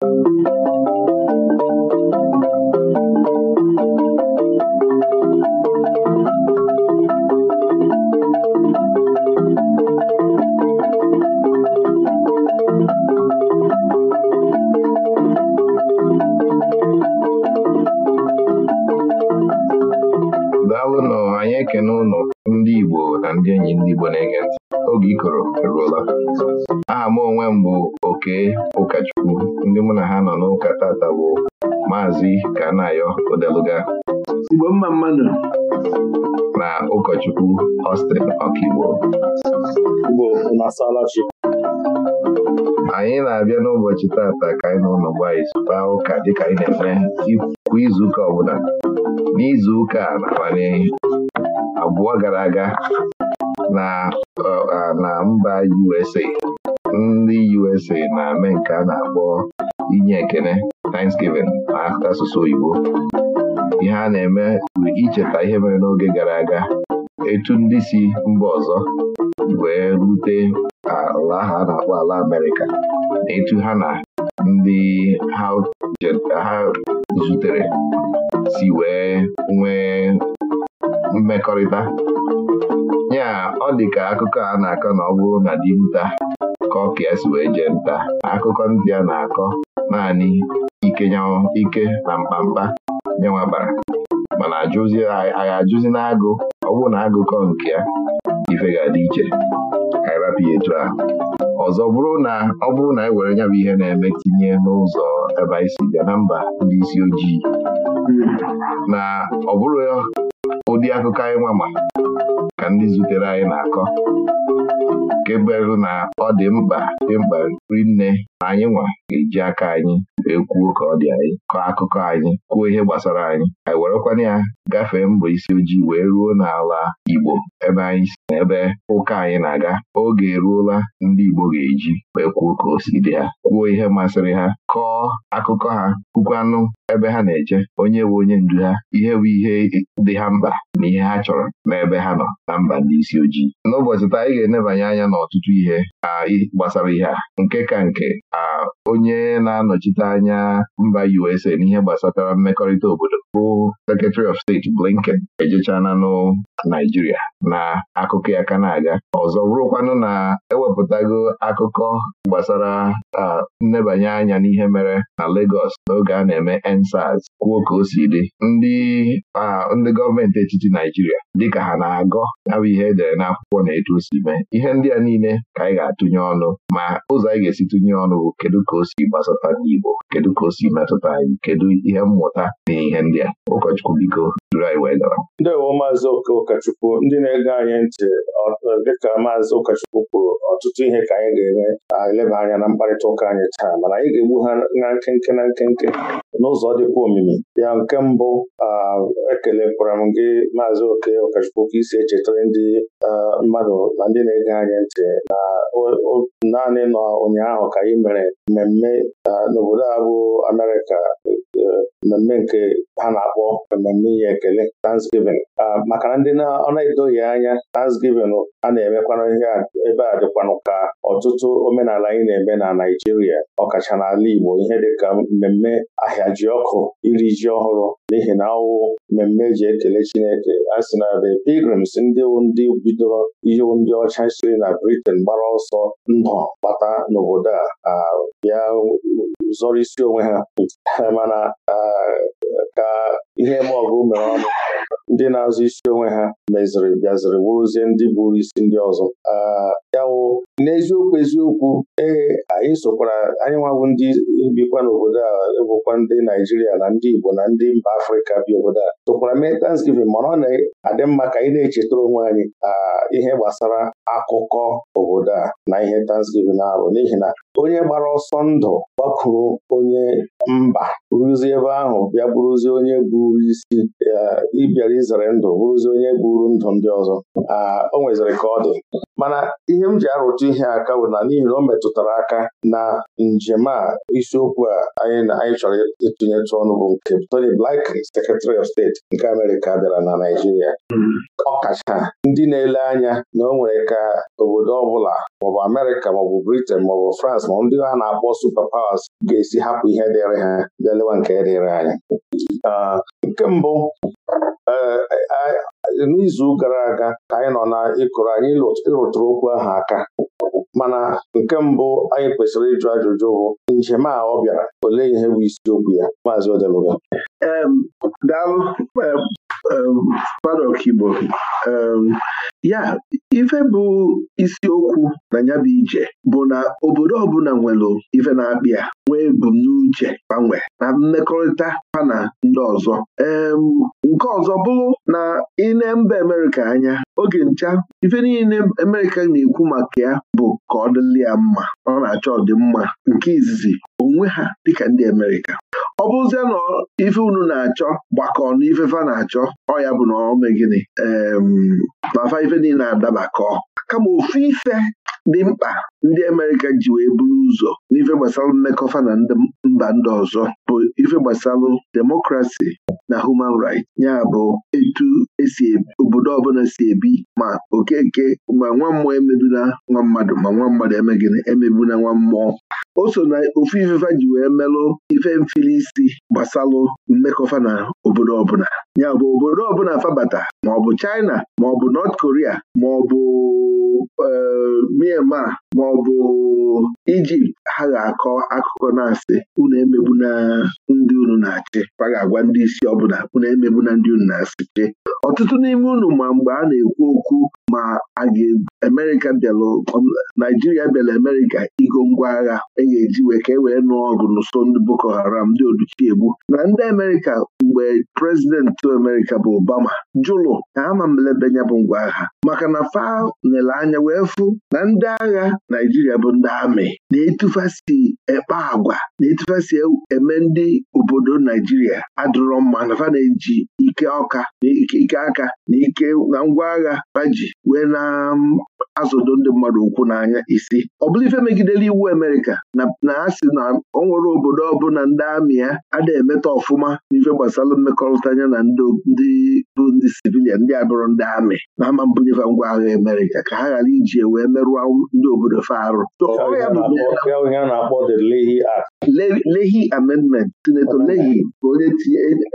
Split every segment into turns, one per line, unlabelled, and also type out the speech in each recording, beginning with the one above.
thank you ozi ka a na-ayọ odeluga Igbo mma mmadụ na ụkọchukwu Austin Ọkigbo anyị na-abịa n'ụbọchị tata ka anyị na ụlọ mgbe anyị kpaa ụka dịka anyị na-eme kwa izuụka ọbụla n'izuụka na-amanụ, n'abalị abụọ gara aga na mba USA ndị USA na-eme nke a na-akpọ inye ekene Thanksgiving Asụsụ oyibo ihe a na-eme bụ icheta ihe mere n'oge gara aga etu ndị si mba ọzọ wee rute ala ahụ a na-akpọ ala Amerịka na etu ha na ndị ha zutere si wee nwee mmekọrịta ya ọ dị ka akụkọ a na-akọ na ọ bụrụ na dinta ka ọ ka wee jee nta akụkọ ndị a na-akọ naanị ike nyanwụ ike na mkpamkpa nyenwa bara mana ajụzi agha ajụzi n'agụ ọ bụrụ na agụkọ nke ya ife ga iche ka ịrapụ ahụ ọzọ bụrụ na ọ bụrụ na e were nya bụ ihe na-eme tinye n'ụzọ ebe anyị si bịa na mba ndị isi ojii na ọ bụrụ ụdị akụkọ anyị nwa ka ndị zutere anyị na-akọ nke berụ na ọ dị mkpa dị mkpa rinne na anyị nwa ga-eji aka anyị wee kwuo ka ọ dị anyị kọọ akụkọ anyị kwuo ihe gbasara anyị anyị werekwana ya gafee mbọ isi ojii wee ruo n'ala Igbo ebe anyị si na ụka anyị na-aga oge eruola ndị Igbo ga-eji wee kwuo ka o dị ha kwuo ihe masịrị ha kọọ akụkọ ha kwukwanụ ebe ha na-eje onye bụ onye ndu ha ihe bụ ihe dị ha mkpa na ihe ha chọrọ n'ebe ha nọ na mba ndị isi ojii n'ụbọchị taa anyị ga-enebanye anya n'ọtụtụ ihe gbasara ihe a nke ka nke onye na-anọchite anya mba USA n'ihe gbasatara mmekọrịta obodo bụ Secretary of Steeti Blinken ejechana nụ Naijiria na akụkọ ya ka na-aga ọzọ bụrụkwanụ na ewepụtago akụkọ gbasara nnebanye anya n'ihe ihe mere na Lagos n'oge a na-eme NSAS, kwuo ka o si dị ndị ndị gọọmenti etiti Naijiria dịka ha na-agọ abụ ihe edere n'akwụkwọ na etu o si mee ihe ndị a niile ka anyị ga-atụnye ọnụ ma ụzọ anyị ga-esi tụnye ọnụ bụ kedu ka o si gbasata ndị Igbo kedu ka o si metụta anyị kedu ihe mmụta na ihe ndị a ụkọchukwu biko ndị
ndewo maazị ụkọchukwu ndị na-ege anyị ntị dịka maazị ụkọchukwu kwuru ọtụtụ ihe ka anyị ga-enwe eleba anya na mkparịta ụka anyị taa mana anyị ga-egbu ha na nkenke na nkenke n'ụzọ dịkwa omimi ya nke mbụ ekelekwara m gị maazị oke ụkọchukwu ka isi echetara ndị mmadụ na ndị na-ege anyị ntị na naanị nọ ụnyaahụ ka anyị mere mmemme n'obodo a bụ Amerịka mmemme nke ha na-akpọ mmemme ihe ekele Thanksgiving ah, maka na ndị ọ na edoghi anya Thanksgiving a na-emekwana ihe ebe a dịkwanụ ka ọtụtụ omenala anyị na-eme na Naijiria ọkacha n'ala Igbo ihe dịka mmemme ahịa ji ọkụ iri ji ọhụrụ n'ihi na ọwụ mmemme e ji ekele Chineke a sị na the pilgrims ndị ndị bidoro ihe ndị ọcha siri na Britain gbara ọsọ ndụ bata n'obodo a ah, bịa zọrọ isi onwe ha mana ka ihe ma mere ọnụ ndị na-azụ isi onwe ha meziri bịaziri wụrụzie ndị buru isi ndị ọzọ ah, ya n'eziokwu eziokwu ee anyị sokwara anyị nwabụ ndị bikwa n'obodo a bụkwa ndị Naijiria na ndị Igbo na ndị mba Afrịka bi obodo a sokwara mee Thanksgiving mana ọ na-adị mma ka anyị na-echetara onwe anyị ah, ihe gbasara akụkọ obodo a na ihe Thanksgiving arụ n'ihi na onye gbara ọsọ ndụ gbakwuru onye mba rụzie ebe ahụ bịa bụrụzie onye buru isi ah, bịara izere ndụ bụrụzi onye buru ndụ ndị ọzọ o nweziri ka ọ dị mana ihe m ji arụtụ ihe aka bụ na n'ihi na o metụtara aka na njem a isiokwu a anyị anyị chọrọ ịtụnyetụ ọnụ bụ nke Tony Blinken Secretary of State nke Amerịka bịara na Naịjirịa hmm. kacha ndị na-ele anya na o nwere ka obodo ọbụla maọbụ Amerịka maọbụ Britain maọbụ France ma ndị ha na-akpọ super powers ga-esi hapụ ihe dịrị ha bịa lewa nke dịrị anyị nke mbụ n'izu gara aga ka anyị nọ na ịkụrụ anyị ịrụtụrụ okwu ahụ aka mana nke mbụ anyị kwesịrị ịjụ ajụjụ bụ njem a ọ bịara olee ihe bụ isiokwu ya maazị Odeluga Um,
padọk Igbo um, ya ife bụ isiokwu na ya bụ ije bụ na obodo ọbụla nwere ife na-akpị ya nwee ebumnuche gbanwe na mmekọrịta ha na ndị ọzọ um, nke ọzọ bụrụ na ine mba Amerịka anya oge ncha ife niile Amerịka na-ekwu maka ya bụ ka ọ dịlị ya mma ọ na-achọ ọdịmma nke izizi onwe ha dịka ndị Amerịka ọ bụzie na ife unu na-achọ gbakọ na ife fa na-achọ ọ ya bụ na ọ ee ife niile na-adabakọ kama ofu ife dị mkpa ndị Amerịka ji wee buru ụzọ n'ife gbasara mmekọfa na mba ndị ọzọ bụ ife gbasalụ demokrasi na human right ya bụ etu esi e, obodo ọbụla si ebi ma okeke ma nwa mmụọ emebula nwa mmadụ ma nwa mmadụ emegịnị emebula nwa mmụọ o so na ofu ifefa ji wee melụ ife mfili isi gbasalụ mmekọfa na obodo ọbụla ya bụ obodo ọbụla fabata maọbụ China maọbụ Nọt Korea maọbụ Eh, Myanmar ma ọ bụ Ijipt ha ga-akọ akụkọ na-asị unu na ndị unu na-achị a ga-agwa ndị isi ọbụla unu emegbuna ndị unu na-asịchi ọtụtụ n'ime unu ma mgbe a na-ekwu okwu ma a ga-Amerịka bịalụ um, Naijiria bịara Amerịka igo ngwa agha e ga-eji wee ka e wee nụọ ọgụ n'ụsọ ndị Boko Haram ndị Oduchiegbu na ndị Amerịka mgbe prezidenti Amerịka bụ Obama jụlụ ka ha ma mlebe nya bụ ngwa agha maka na fa nyere anya wee fụ na ndị agha Naijiria bụ ndị amị na-etufasi ekpe agwa na-etufasi eme ndị obodo Naijiria adịrọ mma na na-eji ike ọka na ike aka na ike na ngwa agha baji wee na mm, azụdo ndị mmadụ ukwu n'anya isi ọ bụla ife megidere iwu Amerịka na a sị na ọ nwere obodo ọbụla ndị amị ya ada emeta ọfụma n'ife gbasara mmekọrịta anya na ndị bụ ndị sivil Naịjirịa ndị a ndị amị na ama mbunyefe ngwa agha Amerịka ka ha ghara iji wee merụọ ndị obodo fa Lehi amendment sinetọ Lehi ka onye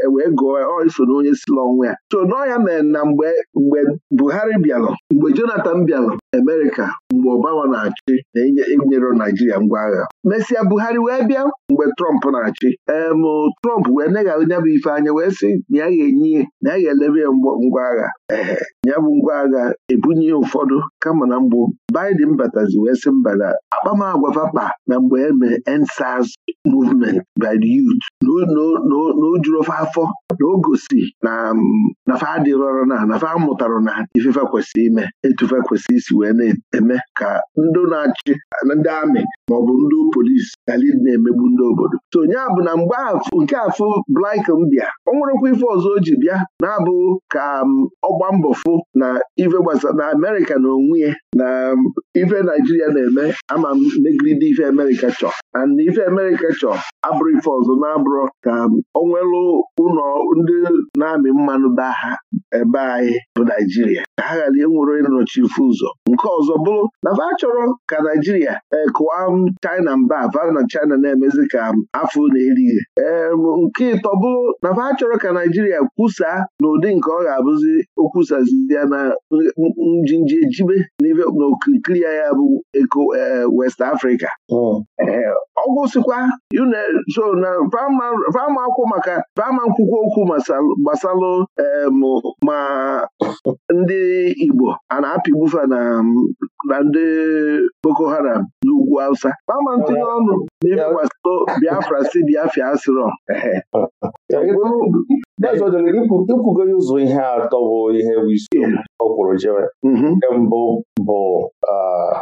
e wee gụọ so na onye si ya so ya mere na mgbe mgbe Buhari bịalụ mgbe Jonathan bịalụ Amerịka mgbe Obama na-achị na enyere Naijiria ngwa agha mesịa Buhari wee bịa mgbe Trump na-achị em Trump wee neghara nya bụ ife anya wee sị na ya ga-enye na ya ga-elebe ya ngwa ngwa agha ya bụ ngwa agha ebunye ụfọdụ kama na mgbụ Biden batazi wee sị mba na akpamagwa vakpa na mgbe e mere EndSARS movement by the youth na o juru ofe afọ na o gosi na mm, fa adịrọrọ na na fa mụtara na ifefe ime etufe isi wee na-eme ka ndị na-achị ndị amị maọbụ ndị polisi gali na-emegbu ndị obodo so onye bụ na mgbe nke afọ Blinken bịa ọ nwerekwa ife ọzọ o ji bịa na-abụ ka mm, Um, ọgba mbọ fụ na ife gbasara na Amerịka na onwe ya na um, ife Naijiria na-eme ama m ife Amerịka chọ and ife Amerịka chọ abụrụ ife ọzọ na-abụrụ ka um, onwelu ụlọ ndị na-amị mmanụ ba ha ebe anyị bụ Naijiria ka ha ghara enwere ịnọchi ife ụzọ nke ọzọ bụrụ na fa chọrọ ka Naijiria e, kụwa China mba va na China na-emezi ka afọ na-erighị nke ịtọ bụrụ na fa chọrọ ka Naijiria kwusaa n'ụdị nke ọ ga-abụzi ọzọzi okwusazie na njinji ejibe na okirikiri ya ya bụ eko eh, West Africa hmm. eh, ọgwụsịkwa so na vama akwụ maka vama nkwụkwọ okwu gbasalụ ma ndị Igbo a na-apịgbufa na ndị Boko Haram ugwu Hausa kpama ntinye ọnụ na Biafra si Biafra
asịrọ ikwugo ụzọ ihe atọ bụ ihe bụ isi ọ kwụrụ jere mhm. nke mbụ bụ ah,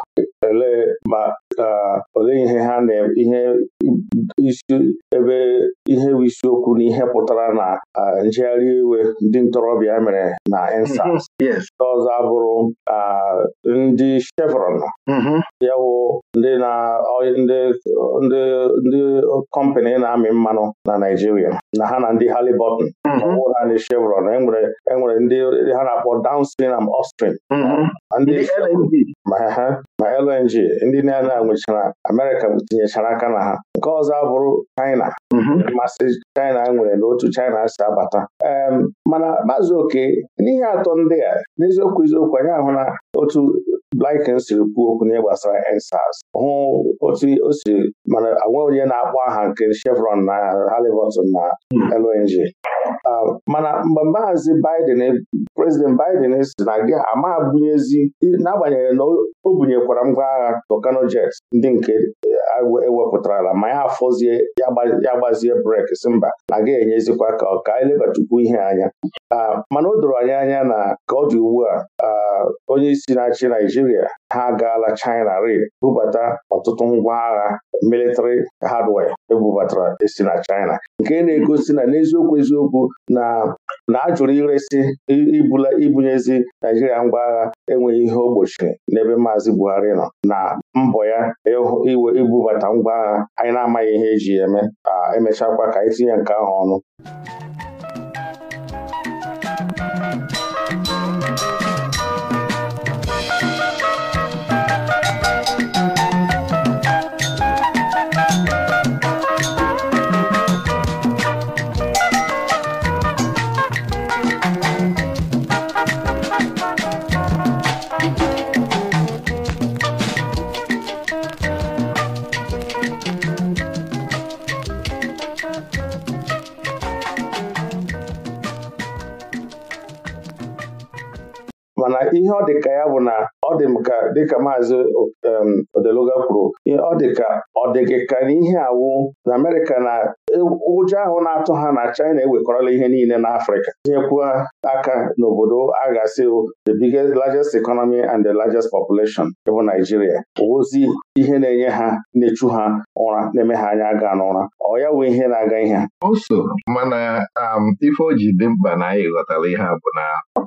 ah, ole ihe ha na ihe isi ebe ihe bụ isiokwu na ihe pụtara na njegharị iwe ndị ntorobịa mere na EndSARS mhm. Ndị ọzọ abụrụ ndị Chevron mhm. ya wụ ndị kọmpani na-amị mmanụ na Naijiria na ha na ndị halibotn mhm. ọbụ naanị Chevron enwere e ndị ha na-akpọ downstream and upstream ma LNG ndị na-ana nwechara Amerịka tinyechara aka na ha nke ọzọ abụrụ China mm-hmm. masị China nwere na otu China si abata mana maazị oke n'ihe atọ ndị a n'eziokwu eziokwu anyị ahụ na otu Blinken siri kwuo okwu n'ihe gbasara EndSARS hụ otu o si mana onwe onye na-akpọ aha nke Chevron na Halliburton na mm-hmm. LNG mana mgbe maazị Biden prezident Biden si na gị ama bunyezi n'agbanyeghị na o bunyekwara ngwa agha Tucano ndị nke ewepụtara ewepụtarala ma ya afọzie ya gbazie brek si mba aga enyezikwa ka ọ ka anyị lebatukwu ihe anya ah, mana o doro anyị anya na ka ọ dị ugbu a ah, onye isi na-achị Naijiria ha agaala China re bubata ọtụtụ ngwa agha military hardware ebubatara esi na China nke e na-egosi na n'eziokwu eziokwu na na a iresi ibula ibunyezi Naijiria ngwa agha enweghị ihe ogbochi n'ebe Maazị Buhari nọ na mbọ ya e iwe ibubata ngwa agha anyị na-amaghị ihe eji eme emechakwa ka anyị tinye nke ahụ ọnụ ihe ọ dị ka ya bụ na ọ dị m ka dịka maazị um, odeluga kwuru ọ dị ka ọ dịghị ka na ihe awụ na Amerịka na e, ụjọ ahụ na-atụ ha na China ewekọrọla ihe niile na Afrịka tinyekwuo aka n'obodo a ga-asị the biggest largest economy and the largest population bụ Naijiria ozi ihe na-enye ha na-echu ha ụra na-eme ha anya aga n'ụra ọ ya wee ihe na-aga ihe
oso mana um, ife o ji dị mkpa na anyị ghọtara ihe a bụ na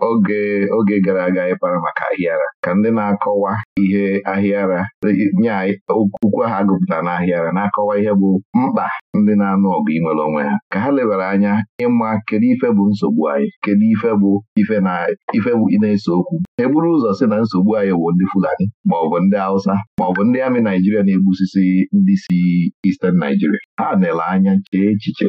oge oge gara aga ịkpara maka ahịara ka ndị na-akọwa ihe ahịara nye okwu ha gụpụta na ahịara na-akọwa ihe bụ mkpa ndị na-anụ ọgụ inwere onwe ha ka ha lebara anya ịma kedu ife bụ nsogbu anyị kedu ife bụ ife na ese okwu eburu ụzọ sị na nsogbu anyị bụ ndị Fulani maọbụ ndị Hausa maọbụ ndị amị Naijiria na-egbusisi ndị si Eastern Naijiria ha nele anya chee echiche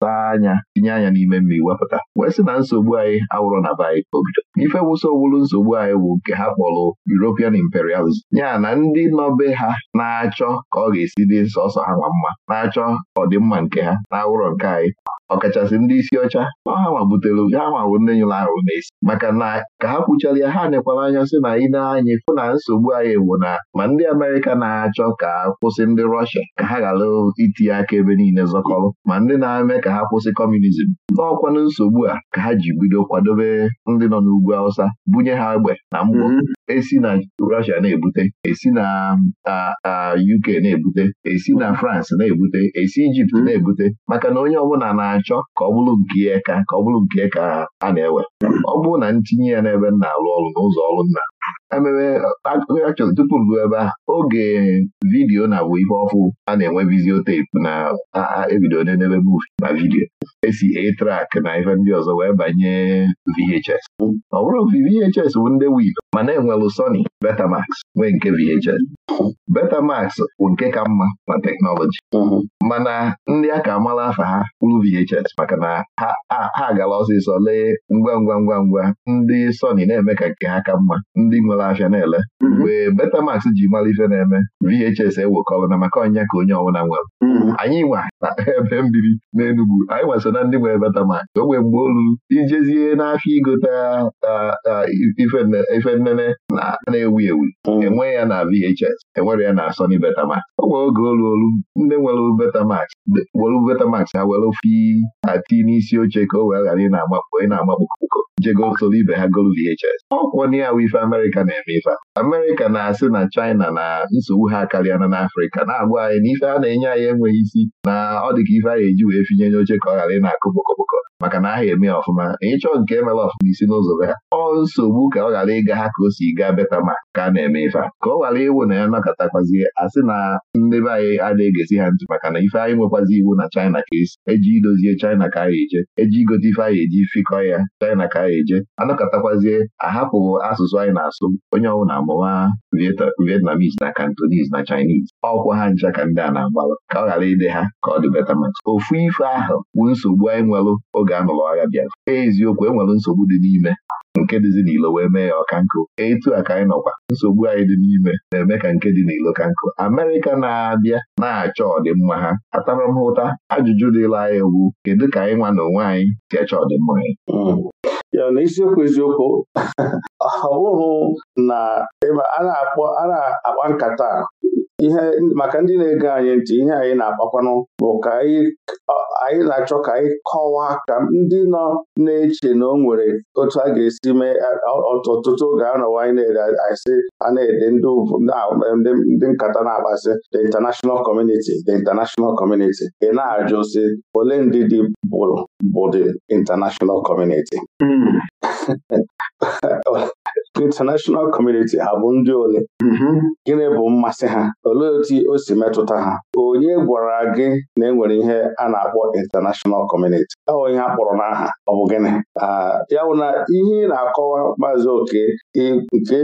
saa anya tinye anya n'ime mmiri wepụta wee sị na nsogbu anyị awụrọ na be anyị ka o bido ife wụsa owulu nsogbu anyị bụ nke ha kpọrọ European imperialism ya na ndị nọbe ha na-achọ ka ọ ga-esi dị sọsọ ha ma mma na-achọ ọdịmma nke ha na awụrọ nke anyị ọkachasị ndị isi ọcha na ha ma ha ma nne nyụrụ ahụ n'isi maka na ka ha kwuchara ya ha nekwara anya sị na ị anyị fụ na nsogbu anyị bụ na ma ndị Amerịka na-achọ ka kwụsị ndị Rọshia ka ha ghara itinye aka ebe niile zọkọrọ ma ndị na-eme ka ha kwụsị kọmunizm n'ọkwanụ nsogbu a ka ha ji bido kwadobe ndị nọ n'ugwu Awụsa bunye ha egbe na mgbọ esi na Russia na-ebute esi na UK na-ebute esi na France na-ebute esi Ijipt hmm. na-ebute maka na onye ọbụla na-achọ ka ọ bụrụ nke ya ka ọ bụrụ nke ya a na-ewe ọ bụrụ na ntinye ya n'ebe m na-arụ ọrụ n'ụzọ ọrụ nna ememe akụkọ tupu ruo ebe a oge vidiyo na bụ ihe ọfụ a na-enwe vizio na ebido n'ebe muuvi na vidiyo esi e a na ihe ndị ọzọ wee banye VHS ọ bụrụ VHS bụ ndị wid ma na-enwelụ Sony Betamax nwee nke VHS Betamax bụ nke ka mma na teknọlọji mana ndị a ka amala afa ha kwuru VHS maka na ha gara ọsịsọ lee ngwa ngwa ngwa ngwa ndị Sony na-eme ka nke ha ka mma ndị nwere na ahịa na-ele mhm. mgbe Betamax ji mara ife na-eme VHS ewekọrọ na maka ọnya ka onye ọbụla nwere mhm. anyị nwa na ebe mbiri n'Enugwu anyị nwa so na ndị nwere Betamax o nwee mgbe olu ijezie n'afịa igote ife nnene na-ewu ewu mhm. enwe ya na VHS enwere ya na Asoni Betamax o nwee oge oluolu ndị nwere Betamax were Betamax ha were ofe ati n'isi oche ka o wee ghara ị na-agbakpọ ị na-agbakpọ jegosoro ibe ha golu VHS ọ kwụọ na ya wụ ife Amerịka na-eme ife a Amerịka na-asị na China na nsogbu ha karịa na n'Afrịka na-agwa anyị na ife a na-enye anyị enweghị isi na ọ dị ka ife anyị eji wee finye oche ka ọ ghara ị na-akụ bokoboko maka na aha eme ọfụma na ịchọ nke emere ọfụma isi n'ụzọ be ha ọ nsogbu ka ọ ghara ịga ha ka o si gaa beta ma ka a na-eme ife a ka ọ ghara iwu na ya nọkọtakwazie asị na ndị be anyị adịghị egesi ha ntị maka na ife anyị nwekwazi iwu na China ka esi eji idozie China ka anyị eje eji igote ife anyị eji fikọ ya China ka anyị eje anọkọtakwazie ahapụ asụsụ anyị na-asụ onye ọbụla amụma Vietnamese na Cantonese na Chinese ọkwa ha ncha ka ndị a na-agbalụ ka ọ ghara ịdị ha ka ọ dị maka ofu ife ahụ bụ nsogbu anyị nwelụ oge a nụrụ agha bịara eziokwu enwelụ nsogbu dị n'ime nke dịzi n'ilo wee mee ya ọka nkụ etu a ka anyị nọkwa nsogbu anyị dị n'ime na-eme ka nke dị n'ilo ka nkụ Amerịka na-abịa na-achọ ọdịmma ha ataramhụta ajụjụ dịla anyị ewu kedu ka anyị nwa na onwe anyị si achọ ọdịmma anyị hmm.
ya na isiokwu eziokwu ọ na a na-akpa nkata maka ndị na-ege anyị ntị ihe anyị na-akpakwanụ bụ ka anyị na-achọ ka anyị kọwaa ka ndị nọ na-eche na o nwere otu a ga-esi mee ọtụtụ oge anọwa anyị na-ede asị a na-ede ndị nkata na-akpasị the international community the international community ị na-ajụ si ole ndị dị bụ the international community hmm. international community ha ndị ole mm-hmm. gịnị bụ mmasị ha olee otu o si metụta ha onye gwara gị na e nwere ihe a na-akpọ international community ọ ihe a kpọrọ n'aha ọ bụ gịnị ya bụ na ihe ị na-akọwa maazị oke nke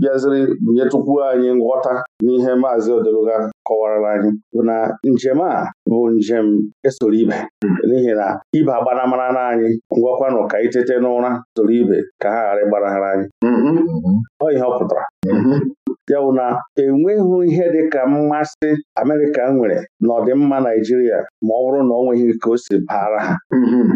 bịaziri nyetụkwu anyị nghọta n'ihe maazị odologa kọwarala anyị bụ na njem a bụ njem esoro ibe n'ihi na ibe agbanamara na anyị ngwakwanụ ka itete n'ụra soro ibe ka ha ghara ịgbanahara anyị mm-hmm. ọ ihe ọ pụtara mm-hmm. ya bụ na enweghị ihe dị ka mmasị Amerịka nwere n'ọdịmma Naijiria ma ọ bụrụ na ọ nweghị ka o si baara ha mm-hmm.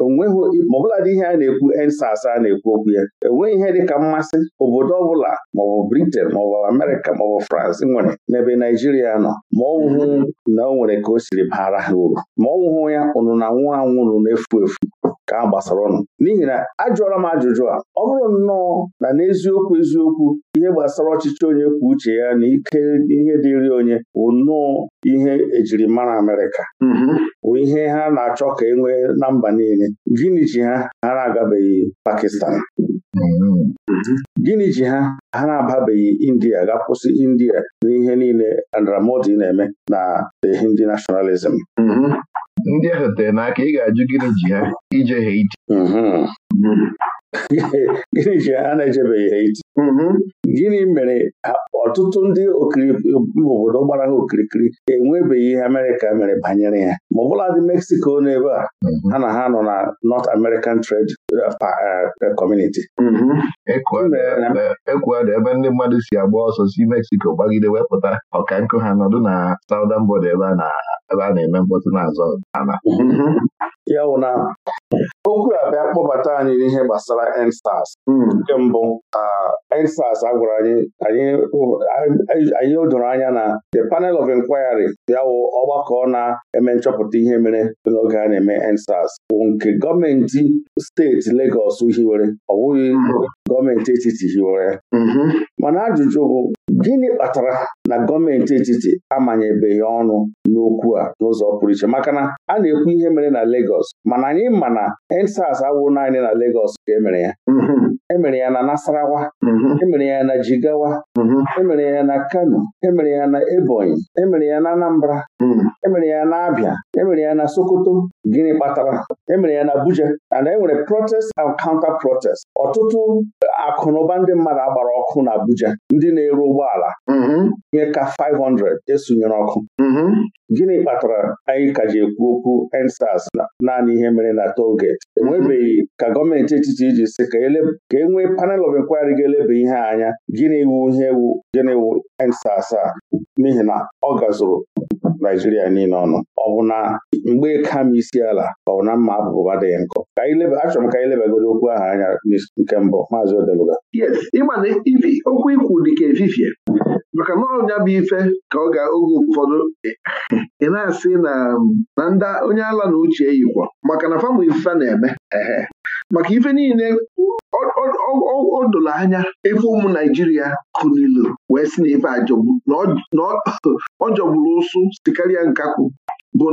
onweghị ma dị ihe a na-ekwu ensas a na-ekwu okwu ya enweghị ihe dịka mmasị obodo ọbụla maọbụ Britain maọbụ Amerịka maọbụ France nwere n'ebe Naijiria nọ ma ọ mhm. na o nwere ka o siri baara ha uru ma ọ ya ụnụ na nwụ anwụrụ na-efu efu ka a gbasara ọnụ n'ihi na ajụọla m ajụjụ a ọ bụrụ nnọọ na n'eziokwu eziokwu ihe gbasara ọchịchị onye kwuo uche ya na ike ihe dịrị onye bụ nnọọ ihe ejirimara Amerịka mhm. bụ ihe ha na-achọ ka e nwee na mba niile gịnị ji ha ha na-agabeghị Pakistan gịnị ji ha ha na-ababeghị India ga-akwụsị India n'ihe niile Andramodi na-eme na the Hindi nationalism ndị ahụ tere n'aka ị ga-ajụ gịnị ji ha ije ha ije
mhm. mhm.
gịnị ji ha na-ejebeghị ha iti mm-hmm. gịnị mere ọtụtụ ndị obodo gbara ha okirikiri enwebeghị ihe Amerịka mere banyere ya ma ọ dị Mexico n'ebe a mm-hmm. ha na ha nọ na North American Trade uh, uh, Community dị mm-hmm.
ebe ndị mmadụ si agba ọsọ si Mexico gbagide wepụta ọka nkụ ha nọdụ na Southern bod ebe a na-eme mkpọtụ n'azọ
okwu a bịa kpọbata anyị n'ihe gbasara ensas hmm. nke mbụ ensas a gwara anyị anyị o anya na the panel of inquiry ya wụ ọgbakọ na-eme nchọpụta ihe mere n'oge a na-eme ensas bụ nke gọọmenti steeti Legọs hiwere ọ bụghị hmm. gọọmenti etiti hiwere mm-hmm. mana ajụjụ bụ gịnị kpatara na gọọmenti etiti amanyebeghị ọnụ n'okwu a n'ụzọ pụrụ iche maka na a na-ekwu ihe mere na Legọs mana anyị ma na endsas awụ naanị na legos ka e mere ya mhm. emere ya na Nasarawa mhm. emere ya na Jigawa mhm. emere ya na Kano emere ya na Ebonyi emere ya na Anambra mhm. emere ya na Abia emere ya na Sokoto gịnị kpatara emere ya na Abuja and e nwere protest and counter protest ọtụtụ akụnụba ndị mmadụ agbara ọkụ na Abuja ndị na-ere ụgbọala ihe ka 500 esonyere ọkụ gịnị kpatara anyị ka ji ekwu okwu EndSARS naanị ihe mere na toll enwebeghị ka gọọmenti etiti iji si ka eleb. ka e nwee panel of inquiry ga-eleba ihe anya gịnị iwu ihe ewu gịnị wu ensa asaa n'ihi na ọ gazuru Naijiria niile ọnụ ọ bụ na mgbe e ka m isi ala ọ bụ na mma abụbụba adịghị nkọ achọrọ m ka anyị lebagoro okwu ahụ anya nke mbụ maazị Odeluga
yes ịmana okwu ikwu dị ka efifie maka na ọnya bụ ife ka ọ ga-oge ụfọdụ ị na-asị na na ndị onye ala na uche yikwa maka na famụ ife na-eme maka ife niile ọ doro anya ebe ụmụ Naijiria ilu wee si na ife ajọgburu na ọ jọgburu ụsụ sikarịa nkakwu bụ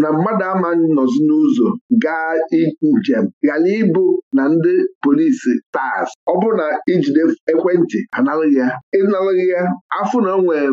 na mmadụ ama nọzi n'ụzọ gaa njem ghara ịbụ na ndị polisi tas ọ bụrụ na ijide ekwentị analụghị ya ịnalụghị ya afụ na nwee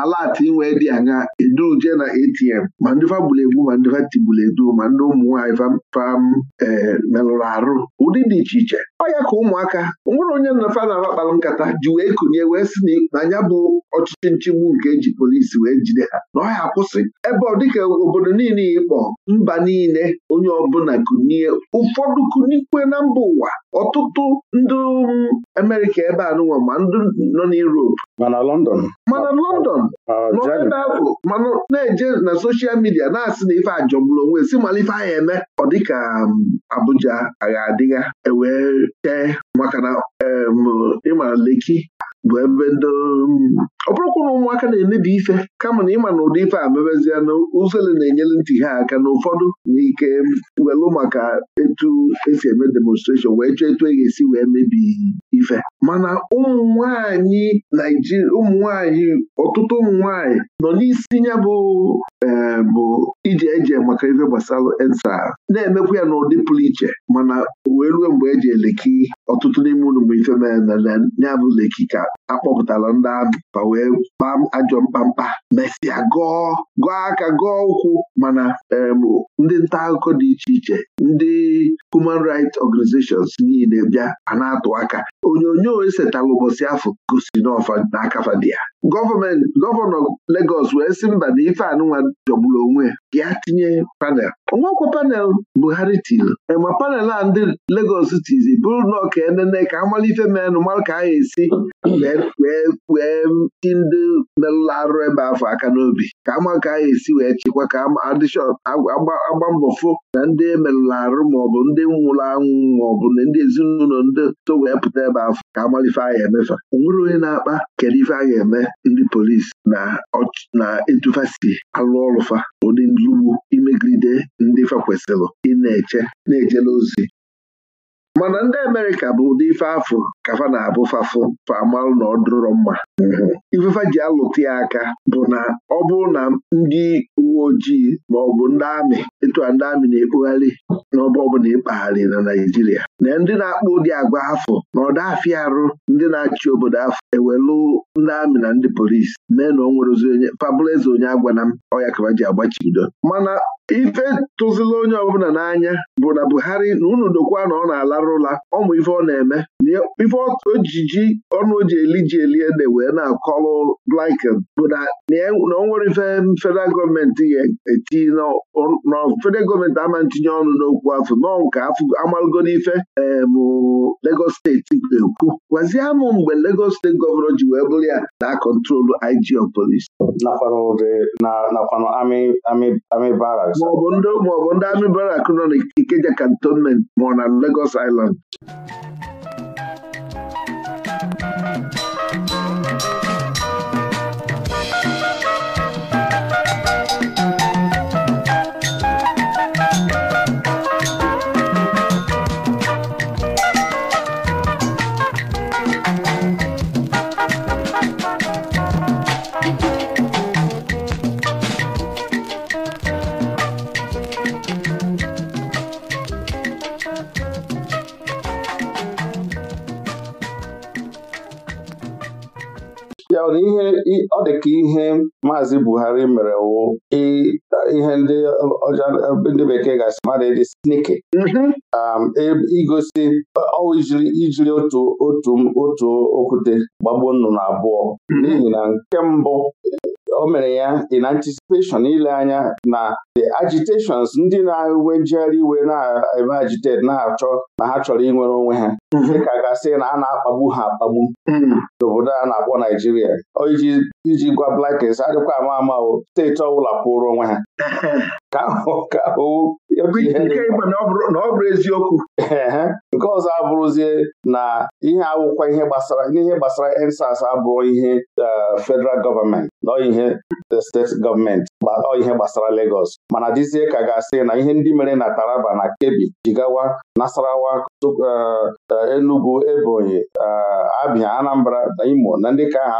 alati inwe dị anya eduje na ATM ma ndị fa gburu egbu ma ndị fa edu ma ndị ụmụnwaanyị fam ee merụrụ arụ ụdị dị iche iche ọ ya ka ụmụaka nwere onye nnafa na-aba kpara nkata ji wee konye wee sị na ya bụ ọchịchị nchigbu nke eji polisi wee jide ha na ọ ya akwụsị ebe ọ dịka obodo niile ịkpọ mba niile onye ọbụla kunie ụfọdụ kunikwe na mba ụwa ọtụtụ ndị um, Amerịka ebe a nụnwa ma ndị nọ n'Europe mana London
mana London nọdafụ
mana na-eje na soshal midia na-asị na ife ajọgburu onwe si mala ife agha eme ọ dịka um, Abuja agha adịgha ewee tee maka na um, ịmara Leki bụ ebe um, ọ bụrụkwa na ụmụaka na emebi ife kama na ịma na ụdị ife a mebezie na uzele na-enyere ntị ha aka na ụfọdụ n'ike welụ maka etu esi eme demonstration wee chọọ etu e ga-esi wee mebi ife mana ụmụ nwanyị Naijiria ụmụ nwanyị ọtụtụ ụmụ nwanyị nọ n'isi ya bụ eh, bụ ije eje maka ife gbasara ensa na-emekwa ya n'ụdị pụrụ iche mana wee ruo mgbe eji eleki ọtụtụ n'ime ụlọ bụ ife mere na ya bụ leki ka akpọpụtala ndị amị pa wee kpaa ajọ mkpamkpa mesịa gọọ gọọ aka gọọ ụkwụ mana ndị nta akụkọ dị iche iche ndị human rights organizations niile bịa a na-atụ aka onyonyo esetalụ ụbọchị afọ gosi n'ọfa n'akafa dị ya gọọmenti gọvanọ Legọs wee sị mba na ife anụnwa jọgburu onwe ya tinye panel onwekwa panel Buhari tiri ma e panel a ndị Legọs tizi bụrụ na ọka enene ka amala ife menụ mara ka a ga-esi wee ti ndị merụrụ arụ ebe afọ aka n'obi ka ama ka a esi wee chịkwa ka adịshọp agba mbọ fụ na ndị merụrụ arụ maọbụ ndị nwụrụ anwụ maọbụ na ndị ezinụlọ ndị wee pụta ebe ba afọ ka agbalife agha emefa ọ nwere onye na-akpa kedu ife a ga-eme ndị polisi na etufasi si alụ ọlụfa ụdị nlugbu imegide ndị fa kwesịrị ịna eche na-ejela ozi mana ndị Amerịka bụ ụdị ife afọ ka fa na-abụ fafụ famalụ na ọdụrọ mma ifefa ji alụta ya aka bụ na ọ bụrụ na ndị ojii ma ọ bụ ndị amị ịtụ a ndị amị na-ekpugharị n'ọba ọbụla ịkpagharị na naijiria na ndị na-akpụ ụdị agwa afọ na ọda afịa arụ ndị na-achị obodo afọ ewelu ndị amị na ndị polisi mee na o nwere ozi onye agwa eze onye m ọya kaba ji agbachibido mana ife tụzila onye ọbụla n'anya bụ na Buhari na unu dokwa na ọ na-alarụ ụla ọmụ ife ọ na-eme ife ojiji ọnụ oji eli ji eli ede wee na-akọlụ blinken bụ e, na o nwere ife federal gọọmenti ya eti nọ federal gọọmenti ama ntinye ọnụ n'okwu afọ nọ nke afọ amalụgo n'ife bụ
Lagos steeti ekwu gwazie amụ mgbe legos steeti gọvanọ ji wee bụrụ ya na kọntrolu IG of maọbụ ndị amị barak nọ n'Ikeja kantonment ma ọ na legos iland ọ dị ka ihe maazị Buhari mere wụ ihe ndị ndị bekee ga-asị mmadụ dị sniki mhm. um, e, igosi ijiri otu otu otu okwute gbagbuo nnụnụ abụọ mhm. n'ihi na nke mbụ o mere ya in anticipation ile anya na the agitations ndị na-enwe njegharị iwe na-eme agitate na-achọ na ha chọrọ inwere onwe ha mm-hmm. dịka gasị na a na-akpagbu ha akpagbu mm-hmm. n'obodo a na-akpọ Naijiria iji gwa Blackins adịkwa ama ama o steeti ọbụla pụrụ onwe ha mm-hmm. ka na ọ bụrụ eziokwu nke ọzọ abụrụzie na ihe awụkwa ihe gbasara n'ihe gbasara ensas abụrụ ihe eh, federal gọọmenti na ihe eh, steeti gọọmenti ọ ihe gbasara legos mana dịzie ka ga-asị na ihe ndị mere na Taraba na Kebbi Jigawa Nasarawa eh, Enugu Ebonyi Abia Anambra na Imo na ndị ka ha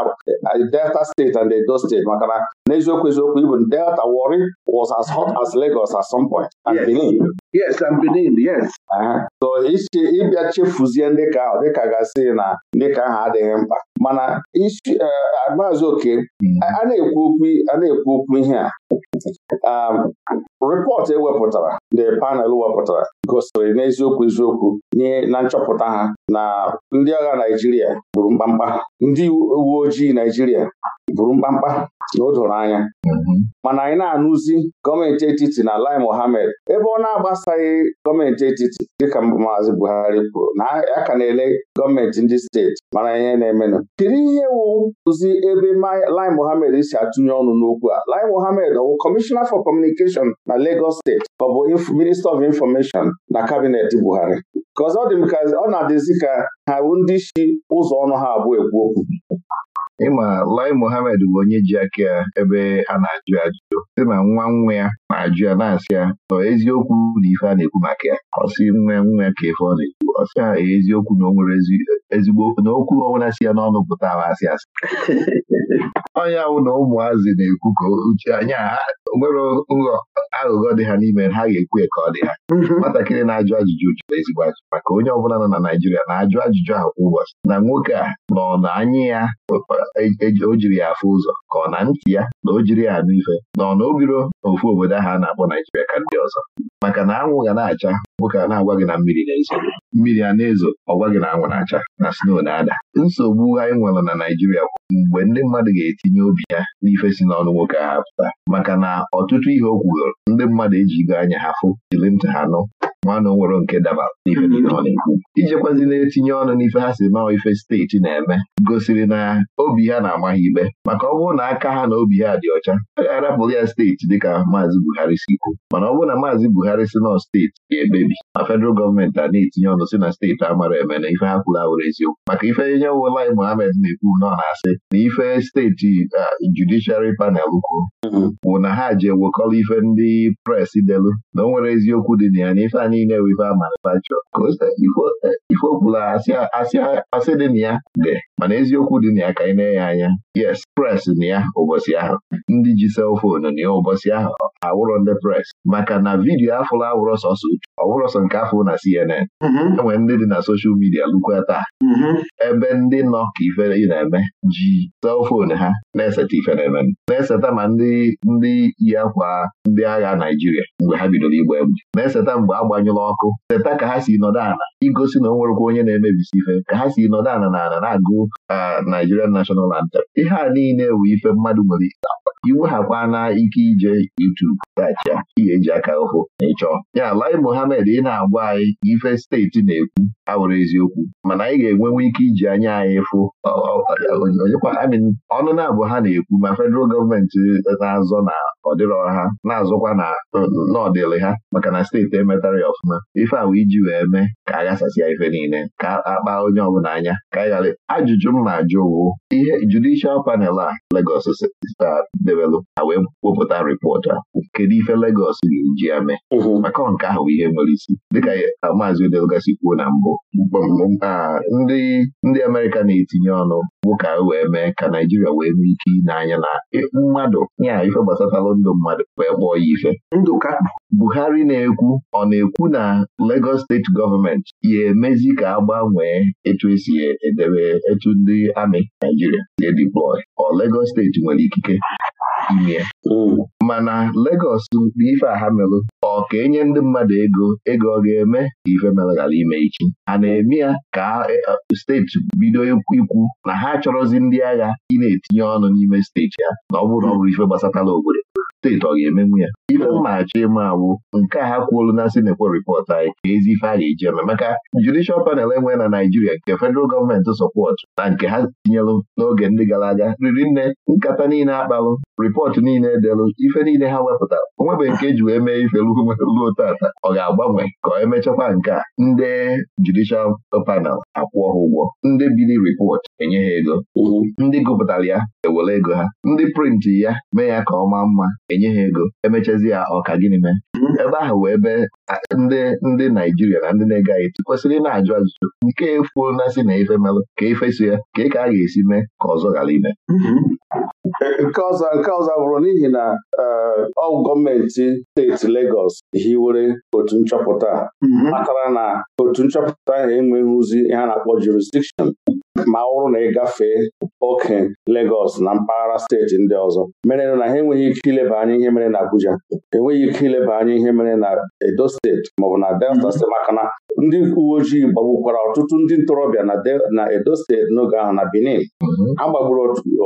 Delta steeti and Edo steeti maka na n'eziokwu eziokwu ibu Delta Warri was as hot as Lagos at some point and Benin. Yes, and Benin, yes. Uh-huh. so ibi ịbịa chefuzie ndị ka ahụ dịka gasị na ndị ka ahụ adịghị mkpa mana isi uh, maazị oke hmm. a na-ekwu okwu ihe a um, rịpọtụ ewepụtara the panel wepụtara gosiri n'eziokwu eziokwu na nchọpụta ha na ndị agha Naijiria gburu mkpamkpa ndị uwe ojii Naijiria bụrụ mkpamkpa na o doro anya mana anyị na-anụzi gọọmenti etiti na Lai mohamed ebe ọ na-agbasaghị gọọmenti etiti dịka maazị Buhari kwuru na ya ka na-ele gọọmenti ndị steeti mara ihe na-emenụ Kedu ihe wụzi ebe Lai Mohammed si atụnye ọnụ n'okwu a Lai Mohammed Ọwụ bụ Kọmishọna for Communication na Lagos steeti ọ bụ Minista of Information na kabinet Buhari dị m ka ọ na-adịzi ka ha bụ ndị isi ụzọ ọnụ ha abụọ ekwu okwu ịma Lai Mohammed
bụ onye ji aka ya ebe a na-ajụ ajụjụ sị na nwa nwa ya na-ajụ ya na-asị ya nọ eziokwu na ife a na-ekwu maka ya ọsị nwa nwa ka ife ọ na-ekwu ọsị ha e, eziokwu na o nwere ezigbo na okwu ọbụla si ya n'ọnụ pụta ha asị asị onye na ụmụazị na-ekwu ka uche anya ha nwere nghọ aghụghọ dị ha n'ime ha ga-ekwu ka ọ dị ha mhm. nwatakịrị na-ajụ ajụjụ jụrụ ezigbo ajụ maka onye ọbụla nọ na Naịjirịa na-ajụ ajụjụ ha kwa ụbọchị na nwoke a nọ na anya ya o jiri ya afụ ụzọ ka ọ na ntị ya na o jiri ya anụ ife na ọ na o obodo ahụ a na-akpọ naijiria ka ndị ọzọ maka na anwụ ga na-acha nwoke a na-agwa gị na mmiri na-ezo mmiri a na-ezo ọgwa gị na anwụ na-acha na sno na-ada nsogbu anyị nwere na Naịjirịa bụ mgbe ndị mmadụ ga-etinye obi ya n'ife si n'ọnụ nwoke ha pụta maka na ọtụtụ ihe o kwuru ndị mmadụ ejigo anya ha fụ jiri ntị ha nụ nwanne nwere nke dabara na na-etinye ọnụ n'ife ha si nọọ ife steeti na-eme gosiri na obi ha na-ama ha ikpe maka ọ bụrụ na aka ha na obi ha dị ọcha a e ga-arapụrụ ya steeti dịka maazị Buhari si kwuo mana ọ bụrụ na maazị Buhari si nọ steeti ga-ekpebi ma federal gọọmenti a na-etinye ọnụ si na steeti amara eme na ife ha kwuru awụrụ eziokwu maka ife nye wụlai Mohammed na-ekwu nọ na-asị na ife steeti judiciary panel kwuo mm-hmm. bụ na ha ji ewekọrọ ife ndị pres delu na o nwere eziokwu dị na ya na ife anyị niile wiva manufacture ifo ọbụla o asị dị na ya dị mana eziokwu dị na ya ka anyị na-enye anya yes pres na ya ụbọchị ahụ ndị ji selfonu na ya ụbọchị ahụ awụrọ ndị pres maka na vidiyo afụla awụrọ sọsọ ọwụrọ sọ nke afọ na CNN mm-hmm. enwe ndị dị na soshal midia lukwa taa mm-hmm. ebe ndị nọ ka ife ị na-eme ji selfonu ha na-eseta ife na-eme na-eseta ma ndị ndị yi akwa ndị agha Naijiria mgbe ha bidoro igba egbe na-eseta mgbe agbanyụla ọkụ seta ka ha si nọdụ ala igosi na o nwerekwa onye na-emebisi ife ka ha si nọdụ ala na ala na-agụ Uh, Nigerian National Anthem ihe a niile wụ ife mmadụ nwere ike na ike ije YouTube tacha ihe eji aka ụfụ na ịchọ ya Lai Mohammed ị na-agwa anyị ife steeti na-ekwu awụrụ eziokwu mana anyị ga-enwenwe ike iji anya anyị fụ ọnụ na-abụ ha na-ekwu ma fedral gọọmenti na-azọ na ọdịrọ ha na azụkwa na n'ọdịrị ha maka na steeti emetara ya ọfụma ife awụ iji wee mee ka a ghasasịa ife niile ka a kpaa onye ọbụla anya ka anyị ajụjụ m na-ajụ wụ ihe judishal panel a Legos debelụ a wee wepụta rịpọt a kedu ife Legos ga-eji ya mee maka nke ahụ ihe nwere isi dịka maazị Odelgasi kwuo na mbụ ndị ndị Amerịka na-etinye ọnụ bụ ka wee mee ka Naijiria wee nwee ike ịnanya na e, mmadụ ya ife gbasatalụ ndụ mmadụ wee kpọọ ya ife Buhari na-ekwu ọ na-ekwu na Lagos steeti gọọmenti ya emezi ka a gbanwee etu esi edebe etu ndị amị Naijiria si edeploy ọ Lagos steeti nwere ikike ime ya hmm. mana Lagos na ife aha merụ ọ ka enye ndị mmadụ ego ego ọ ga-eme ka ife merụ ghara ime echi? a na-eme ya ka eh, steeti bido ikwu na ha chọrọzi ndị agha ị na-etinye ọnụ n'ime steeti ya na ọ bụrụ na ọ bụrụ ife gbasatala obodo steeti ọ ga-emenwu ya ife achọ ịma awụ nke a ha kwuolu na sinekwo ripọt anyị ka ezi ife a ga-eji eme maka judishal panel enwe na Naijiria nke federal gọọmenti sọpọtụ na nke ha tinyelụ n'oge ndị gara aga riri nne nkata niile akpalụ ripọtụ niile edelụ ife niile ha wepụta onwebeghị nke eji wee mee ife ruo tata ọ ga-agbanwe ka ọ emechakwa nke a ndị judishal panel akwụọ ha ụgwọ ndị bili ripọt enye ha ego ndị gụpụtara ya ewere ego ha ndị prịntị ya mee ya ka ọ maa mma enye ha ego emechazi ya ọka gịnị mee ebe ahụ wee ebe ndị ndị Naijiria na ndị na-ege anyị kwesịrị na-ajụ ajụjụ nke efuo na si na ife melụ ka ife so ya ka ka a ga-esi mee ka ọzọ ghara ime mm-hmm.
nke ọzọ nke ọzọ bụrụ n'ihi na eh, ọ gọọmenti steeti legos hiwere otu nchọpụta mm-hmm. matara na otu nchọpụta ahụ enweghị ozi ha na-akpọ jurisdiction ma ọ na ị gafee oke Legọs na mpaghara steeti ndị ọzọ mere na ha enweghị ike ileba anya ihe mere na Abuja enweghị ike ileba anya anya ihe mere na Edo steeti maọbụ na Delta mhm. steeti maka na ndị uwe ojii gbagbukwara ọtụtụ ndị ntorobịa na Edo steeti n'oge ahụ na Benin mhm. a gbagburu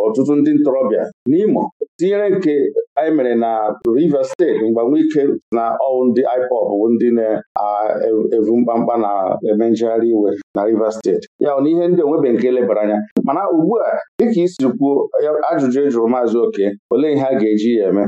ọtụtụ ndị ntorobịa n'Imo tinyere nke anyị mere na Rivers steeti mgbanwe ike na ọwụ ndị IPOB ndị na-evu mkpamkpa na-eme njegharị iwe na Rivers steeti ya na ihe ndị onwebe nke lebara anya mana ugbu a dịka isi kwuo ajụjụ ejụrụ jụrụ maazị Oke olee ihe a ga-eji ya eme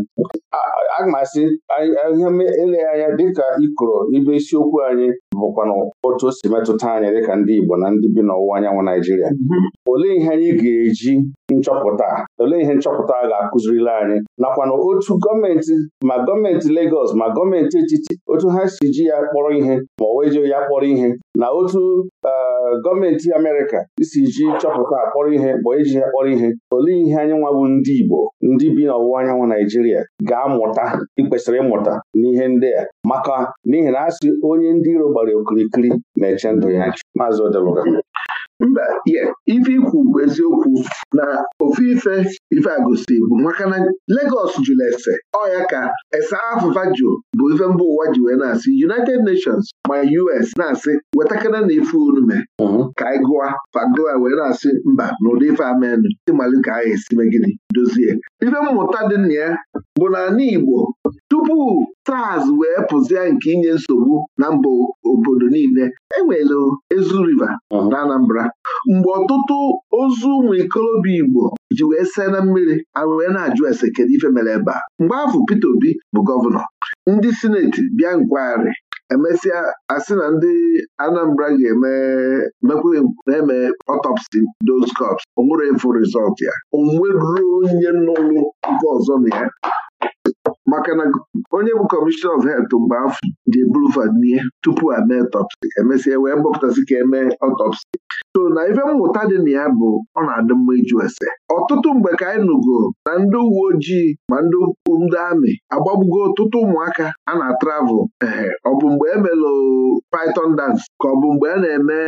a m asị ihe eleghị anya dịka ikoro ibe isiokwu anyị bụkwana otu o si metụta anyị dịka ndị Igbo na ndị bi n'ọwụwa anyanwụ Naijiria mhm. olee ihe anyị ga-eji nchọpụta olee ihe nchọpụta a ga-akụzirila anyị nakwana otu gọọmenti ma gọọmenti Legọs ma gọọmenti etiti otu ha si ji ya kpọrọ ihe ma ọ weji ya kpọrọ ihe na otu eh, gọọmenti Amerịka isi ji chọpụta akpọrọ ihe ma eji ya kpọrọ ihe olee ihe anyị nwa bụ ndị Igbo ndị bi n'ọwụwa anyanwụ Naijiria ga-amụta ikwesịrị ịmụta n'ihe ndị a maka n'ihi na a onye ndị iro gbara okirikiri na-eche ndụ ya Maazị Odeluga mba ife ikwu bụ eziokwu na ofu ife ife agosi
bụ maka na Lagos jụrụ ese ọya ka ese afụfa bụ ife mba ụwa ji wee na-asị United Nations ma US na-asị wetakana na ife onume mhm. ka anyị gụa wee na-asị mba na ụdị ife amenụ dị ka anyị esi megide dozie ife mmụta dị na ya bụ na anyị Igbo tupu taas wee pụzie nke inye nsogbu na mba obodo niile enwere ezu riva na Anambra mgbe ọtụtụ ozu ụmụ ikolobịa Igbo ji wee see na mmiri wee na-ajụ ese kedu ife mere ebe a mgbe afọ Peter Obi bụ gọvanọ ndị sineti bịa nkwagharị emesịa asị na ndị Anambra ga-eme na-eme otopsi, doscops onwere efu rizọt ya onwe ruo onye n'ụlọ nke ọzọ na ya maka na onye bụ kọmishọna of helth mgbe afọ ji eburu fanie tupu a mee ọtọpsi emesịa e wee gbọpụtasị ka emee ọtọpsi so na ife mmụta dị na ya bụ ọ na-adị mma ịjụ ese ọtụtụ mgbe ka anyị nụgo na ndị uwe ojii ma ndị ndị amị agbagbugo ọtụtụ ụmụaka a na-atravel ehe ọ bụ mgbe emela python dance ka ọ bụ mgbe a na-eme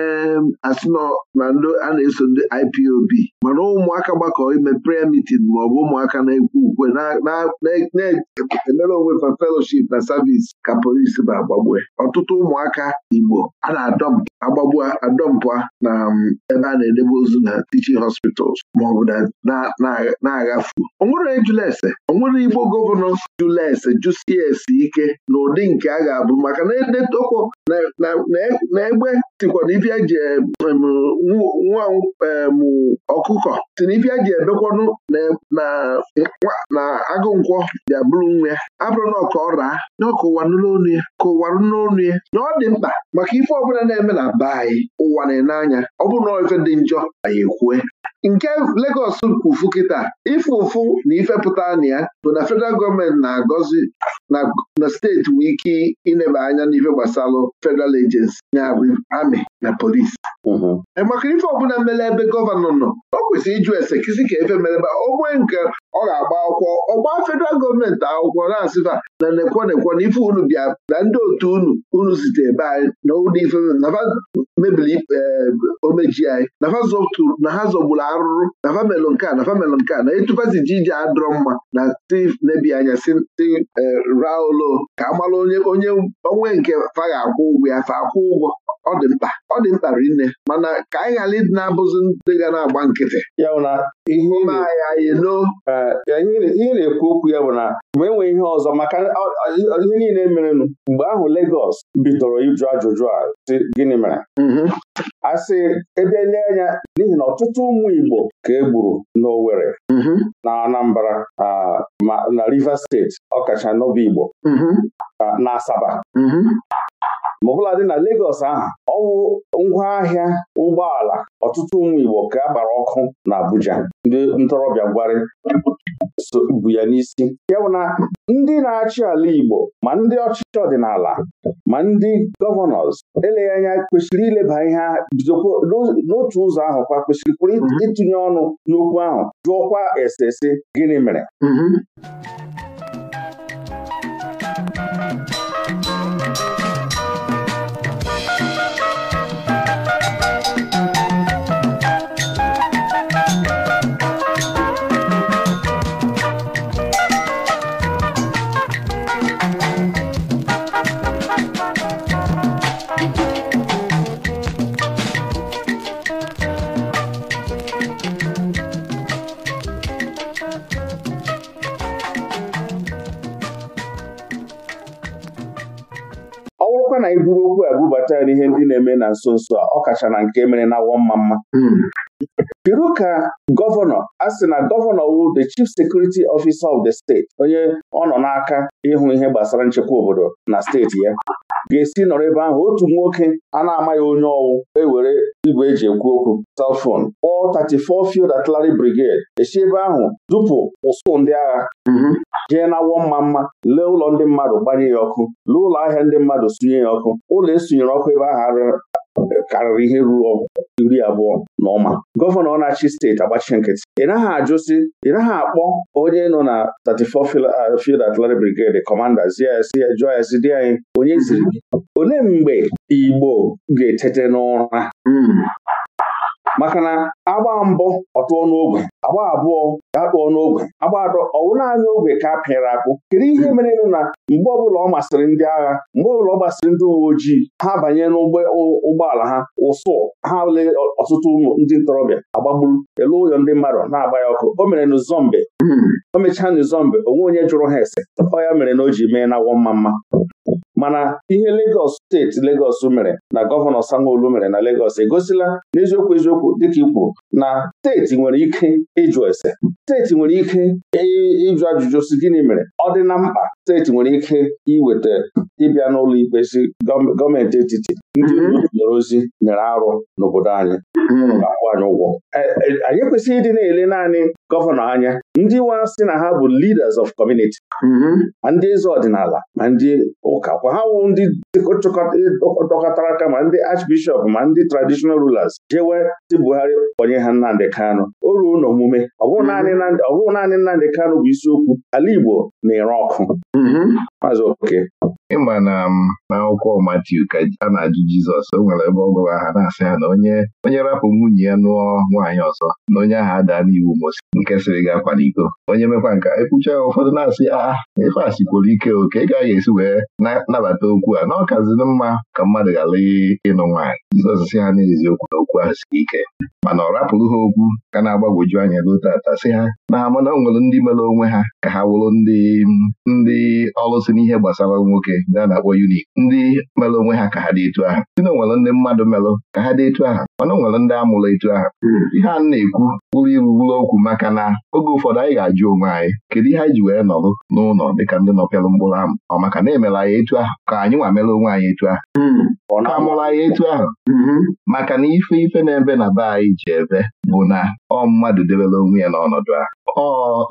asino na ndị a na-eso ndị IPOB mana ụmụaka gbakọ ime prayer meeting ma ọ bụ ụmụaka na-ekwu ukwe na-emere onwe fa fellowship na service ka polisi ba agbagbue ọtụtụ ụmụaka Igbo a na-adọm agbagbua adọmpụa na um, ebe a na-edebe ozu na teaching hospitals maọbụ na-aghafu onwere ejulese onwere igbo gọvanọ julese jusie ike na ụdị nke a ga-abụ maka na edetokwo na egbe tikwa na ife eji nwa ọkụkọ si na ife eji ebekwanụ na agụ nkwọ bịa bụrụ nwa ya abụrụ na ọka ọ na n'onu ya ka ụwanụ n'onu ya na ọ dị mkpa maka ife ọbụla na-eme na be anyị ụwa na-ene anya ọ bụrụ na ife dị njọ anyị ekwue nke Legọs kwufu kịta ife ụfụ na ifepụta na ya bụ na federal gọọmenti na-agọzi na steeti nwee ike ineba anya n'ife gbasalụ federal agency ya amị na polisi mm-hmm. e maka ife ọbụla mere ebe gọvanọ nọ o kwesịrị ịjụ ese kisi ka efe merebe onwe nke ọ ga-agba akwụkwọ ọgba federal gọọmenti akwụkwọ na-asịfa na nekwo nekwo na ife unu bịa na ndị otu unu unu zite ebe anyị na ụlọ ife mebiri eh, omeji anyị na ha zọgbu gburu arụrụ na famelụ nke a na famelụ nke a na etufasi ji ije adọrọ mma na tiv nebi anya si eh, raolo ka amalụ onye onwe nke fa akwụ ụgwọ ya fa akwụ ụgwọ ọ dị mkpa ọ dị mkpa rinne mana ka
anyị ghara ịdị na-abụzi ndị ga na-agba nkịtị ya bụ na ihe na-ekwu okwu ya bụ na mgbe enwe ihe ọzọ maka ihe niile merenụ mgbe ahụ Legos bidoro ịjụ ajụjụ a sị gịnị mere mhm. asị ebe ele anya n'ihi na ọtụtụ ụmụ Igbo ka e gburu n'Owerri mhm. na Anambra na Rivers steeti ọkacha n'obi Igbo mhm. na Asaba ma dị na Legọs ahụ ọwụ ngwaahịa ụgbọala ọtụtụ ụmụ Igbo ka a gbara ọkụ na Abuja ndị ntorobịa gwarị bụ ya n'isi ya bụ na ndị na-achị ala Igbo ma ndị ọchịchị ọdịnala ma ndị gọvanọs eleghị anya kwesịrị ileba ihe bidokwa n'otu ụzọ ahụ kwa kwesịrịkwuru ịtụnye ọnụ n'okwu ahụ jụọkwa esese gịnị mere mm-hmm. ya n'ihe ndị na-eme na nso nso a ọ kacha na nke mere na awọ mma mma Piru hmm. ka gọvanọ a sị na gọvanọ wu the chief security officer of the state onye ọ nọ n'aka ịhụ ihe gbasara nchekwa obodo na steeti ya ga-esi nọrọ ebe ahụ otu nwoke a na-amaghị onye ọwụ ewere igwe eji ekwu okwu telfon kpọọ 34 Field Artillery Brigade esi ebe ahụ dupụ ụsụ ndị agha mhm. jee na-awọ mma mma lee ụlọ ndị mmadụ gbanye ya ọkụ lee ụlọ ahịa ndị mmadụ sunye ya ọkụ ụlọ esunyere ọkụ ebe ahụ karịrị ihe ruo iri abụọ na ọma gọvanọ na-achị steeti agbachi nkịtị ị naghị ajụsị ị naghị akpọ onye nọ na 34 uh, Field Artillery Brigade kọmanda jụọ ya sị dị anyị onye ziri olee mgbe Igbo ga-etete n'ụra hmm. maka na agba mbụ tụọ n'ogwe agba abụọ ya tụọ n'ogwe agba atọ ọwụ naanị ogwe ka a pịara akpụ kedu ihe mere na mgbe ọbụla ọ masịrị ndị agha mgbe ọbụla ọ masịrị ndị uwe ojii ha banye n'ụgbọala ha ụsụ ha ole ọtụtụ ụmụ ndị ntorobịa agbagburu elu ụyọ ndị mmadụ na-agba ya ọkụ o mere n'Uzombe hmm. o mechaa n'Uzombe onwe onye jụrụ ha ese ọ ya mere na o ji mee na wọ mma mma mana ihe Legọs steeti lagos mere na gọvanọ sanwo mere na Legọs egosila n'eziokwu eziokwu dịka ikwu kwuru na steeti nwere ike ịjụ ese steeti nwere ike ịjụ ajụjụ si gịnị mere ọ dị na mkpa steeti nwere ike iweta ịbịa n'ụlọ ikpe si gọọmenti etiti ndị zoro mhm. ozi nyere arụ n'obodo anyị ga-akwụ mhm. anyị ụgwọ e, e, anyị ekwesịghị ịdị na-ele naanị gọvanọ anya ndị nwa sị na ha bụ leaders of community mhm. ma ndị eze ọdịnala ma ndị ụka kwa ha wụ ndị dọkọtara aka ma ndị archbishop ma ndị traditional rulers jewe ndị Buhari kpọnye ha Nnamdị kano o ruo n'omume ọ bụghị naanị Nnamdị kano bụ isiokwu ala Igbo na-ere ọkụ Maazị Oke. ịma na
um, n'akwụkwọ Matiu ka a na-ajụ Jizọs o nwere ebe ọ gwara aha na-asị ha na onye onye rapụ nwunye ya nụọ nwaanyị ọzọ na onye aha ada n'iwu Mosi nke sịrị gị akwa iko. onye mekwa nka ekwucha ya ụfọdụ na-asị a ife a sikworo ike oke ị gaghị esi wee nabata okwu a na ọkazini mma ka mmadụ ghara ịnụ nwaanyị Jizọs sị ha okwu na okwu ahụ siri ike mana ọ rapụrụ ha okwu ka na-agbagwoju anya ruo tata sị ha na ha mana o nwere ndị mere onwe ha ka ha wụrụ ndị ndị ọlụsị n'ihe gbasara nwoke na-akpọ unik ndị melụ onwe ha ka ha dị etu aha si na nwere ndị mmadụ melụ ka ha dị etu aha mana nwere ndị amụrụ etu ahụ hmm. ihe a na-ekwu bụrụ iru bụrụ okwu maka na oge ụfọdụ anyị ga-ajụ onwe anyị kedu ihe anyị ji wee nọrụ n'ụlọ dịka ndị nọpịalụ mkpụrụ amụ ọ maka na emere anyị etu ahụ ka anyị nwa mere onwe anyị etu ahụ hmm. ka amụrụ anyị etu ahụ hmm. maka na ife ife na-ebe na be anyị ji ebe bụ na ọ mmadụ debere onwe ya n'ọnọdụ ahụ ọ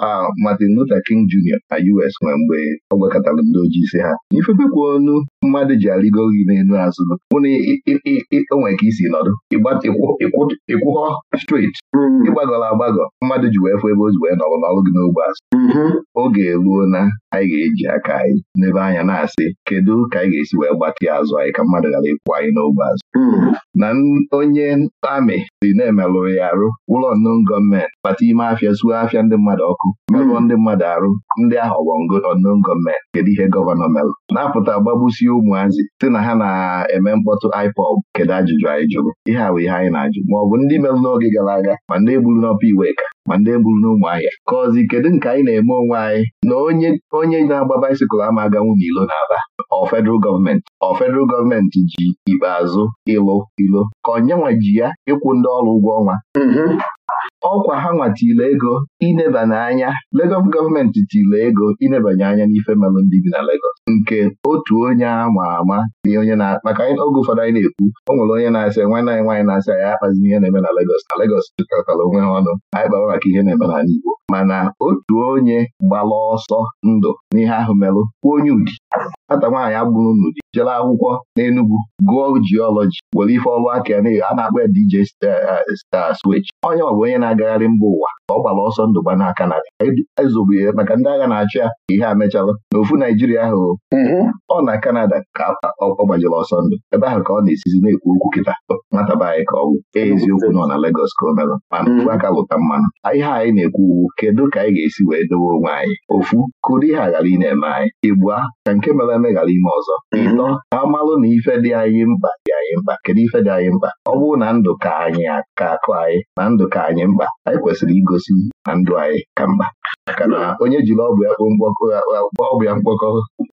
Martin Luther King Jr. na US nwee mgbe ọ gwakọtara ndị ojii si ha ifebekwa onu mmadụ ji arịgo gị n'elu azụ bụ ka isi nọdụ ịgba ịkwụkọ striti ịgbagọrọ agbagọ mmadụ ji wee fụ ebe o wee nọrọ n'ọrụ gị n'ogbe azụ mm-hmm. oge eruo na anyị ga-eji aka anyị n'ebe anya na-asị kedu ka anyị ga-esi wee gbatị azụ anyị ka mmadụ ghara ịkwụ anyị n'ogbe azụ mm-hmm. na onye amị si na emelụrụ ya arụ ụlọ nnọọ gọọmenti kpata ime afịa zuo afịa ndị mmadụ ọkụ merụọ mm-hmm. ndị mmadụ arụ ndị ahụ ọgbọngo nnọọ gọọmenti kedu ihe gọvanọ merụ na-apụta gbagbusie ụmụazị sị na ha na-eme mkpọtụ IPOB kedu ajụjụ anyị jụrụ ihe a wee ihe anyị na-ajụ ma ọ bụ ndị merụ n'oge gara aga ma ndị gburu n'ọpa iwe ka ma ndị gburu n'ụmụ ahịa ka ọzị kedu nke anyị na-eme onwe anyị na onye onye na-agba baisikụl ama aga Ilo na n'ala ọ federal gọọmenti ọ federal gọọmenti ji ikpeazụ ịlụ ilo ka onyenwa ji ya ịkwụ ndị ọrụ ụgwọ ọnwa mhm. ọkwa ha nwatile ego inebanye anya Lagos gọọmenti tile ego inebanye anya n'ife melụ ndị bi na Lagos nke otu onye ama ama na onye na maka oge ụfọdụ anyị na-ekwu o nwere onye na-asị nwanne anyị nwaanyị na-asị anyị akpazi ihe na-eme na Lagos na Lagos jikọtara e onwe ha ọnụ anyị kpawa maka ihe na-eme n'ala Igbo mana otu onye gbara ọsọ ndụ n'ihe ahụ melụ kwuo onye ụdị. nwata nwaanyị agbụrụ unu dị akwụkwọ n'Enugwu gụọ jiọlọji were ife ọrụ aka ya a na-akpọ ya DJ Star eh, eh, onye ọ bụ onye na-agagharị mba ụwa ọ gbara ọsọ ndụ gba n'aka na ezobe ya maka ndị agha na-achị ya ka ihe a mechala na ofu Naijiria ahụ mhm. ọ na Kanada ka ọ gbajiri ọsọ ndụ ebe ahụ ka ọ na-esizi na-ekwu okwu kịta Nwataba anyị ka ọ bụ eziokwu nọ na Legọs ka o merụ mana ofu mhm. aka lụta mmanụ ihe anyị na-ekwu uwu kedu ka anyị ga-esi wee dowe onwe anyị ofu kụrụ ihe a ghara ị na-eme anyị Igbua ka nke mere eme ghara ime ọzọ mhm. ịtọ ka amalụ na ife dị anyị mkpa dị anyị anyị mkpa kedu ife dị anyị mkpa ọ bụrụ na ndụ ka anyị ka akụ anyị na ndụ ka anyị mkpa anyị kwesịrị igosi na ndụ anyị ka mkpa maka na onye jiri ọbụ ya ọbụ ya mkpọkọ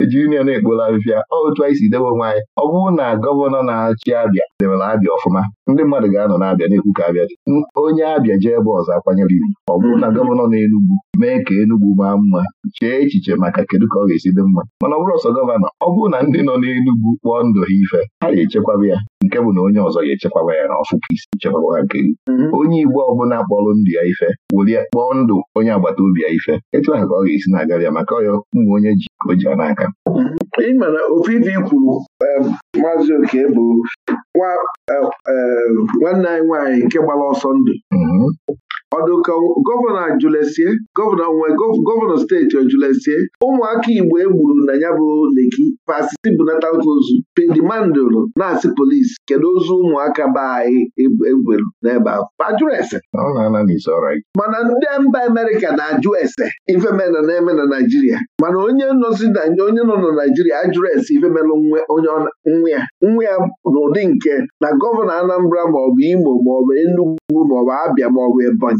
ejiri ya na-ekpola afịfịa otu anyị si debe onwe anyị ọ bụrụ na gọvanọ na-achị abịa debere abịa ọfụma ndị mmadụ ga-anọ na-abịa na-ekwu ka abịa dị onye abịa jee ebe ọzọ akwanyere iwu ọ bụrụ na gọvanọ na-enugwu mee ka enugwu maa mma chee echiche maka kedu ka ọ ga-esi dị mma mana ọ bụrụ ọsọ gọvanọ ọ bụrụ na ndị nọ n'enugwu kpọọ ndụ ha ife ha ga-echekwaba ya nke bụ na onye ọzọ ga-echekwaba ya na ọfụ isi chekwaba ha nke mhm. onye Igbo ọbụla kpọrọ ndụ ya ife welie kpọọ ndụ onye agbata obi ya ife etu ahụ ka ọ ga-esi na-agara ya maka ọya ụmụ onye ji ka o ji n'aka mhm.
ịmana ofu kwuru maazị oke bụ nwanne anyị nwaanyị nke gbara ọsọ ndụ mhm. ọdụka gọvanọ ajụlesie gọvanọ nwe gọvanọ steeti ojụlesie ụmụaka Igbo e gburu na ya bụ Leki pasiti bunatakozu pedimandụlụ na asi polisi kedu ozu ụmụaka be anyị egwelu e n'ebe ahụ ajụrụ ese mana ndị mba Amerika na-ajụ ese ifemena na-eme na Naijiria mana onye onye nọ na Naijiria ajụrụ ese ifemelụ onye nwa ya nwa n'ụdị nke na gọvanọ Anambra maọbụ Imo maọbụ Enugu maọbụ Abịa maọbụ Ebonyi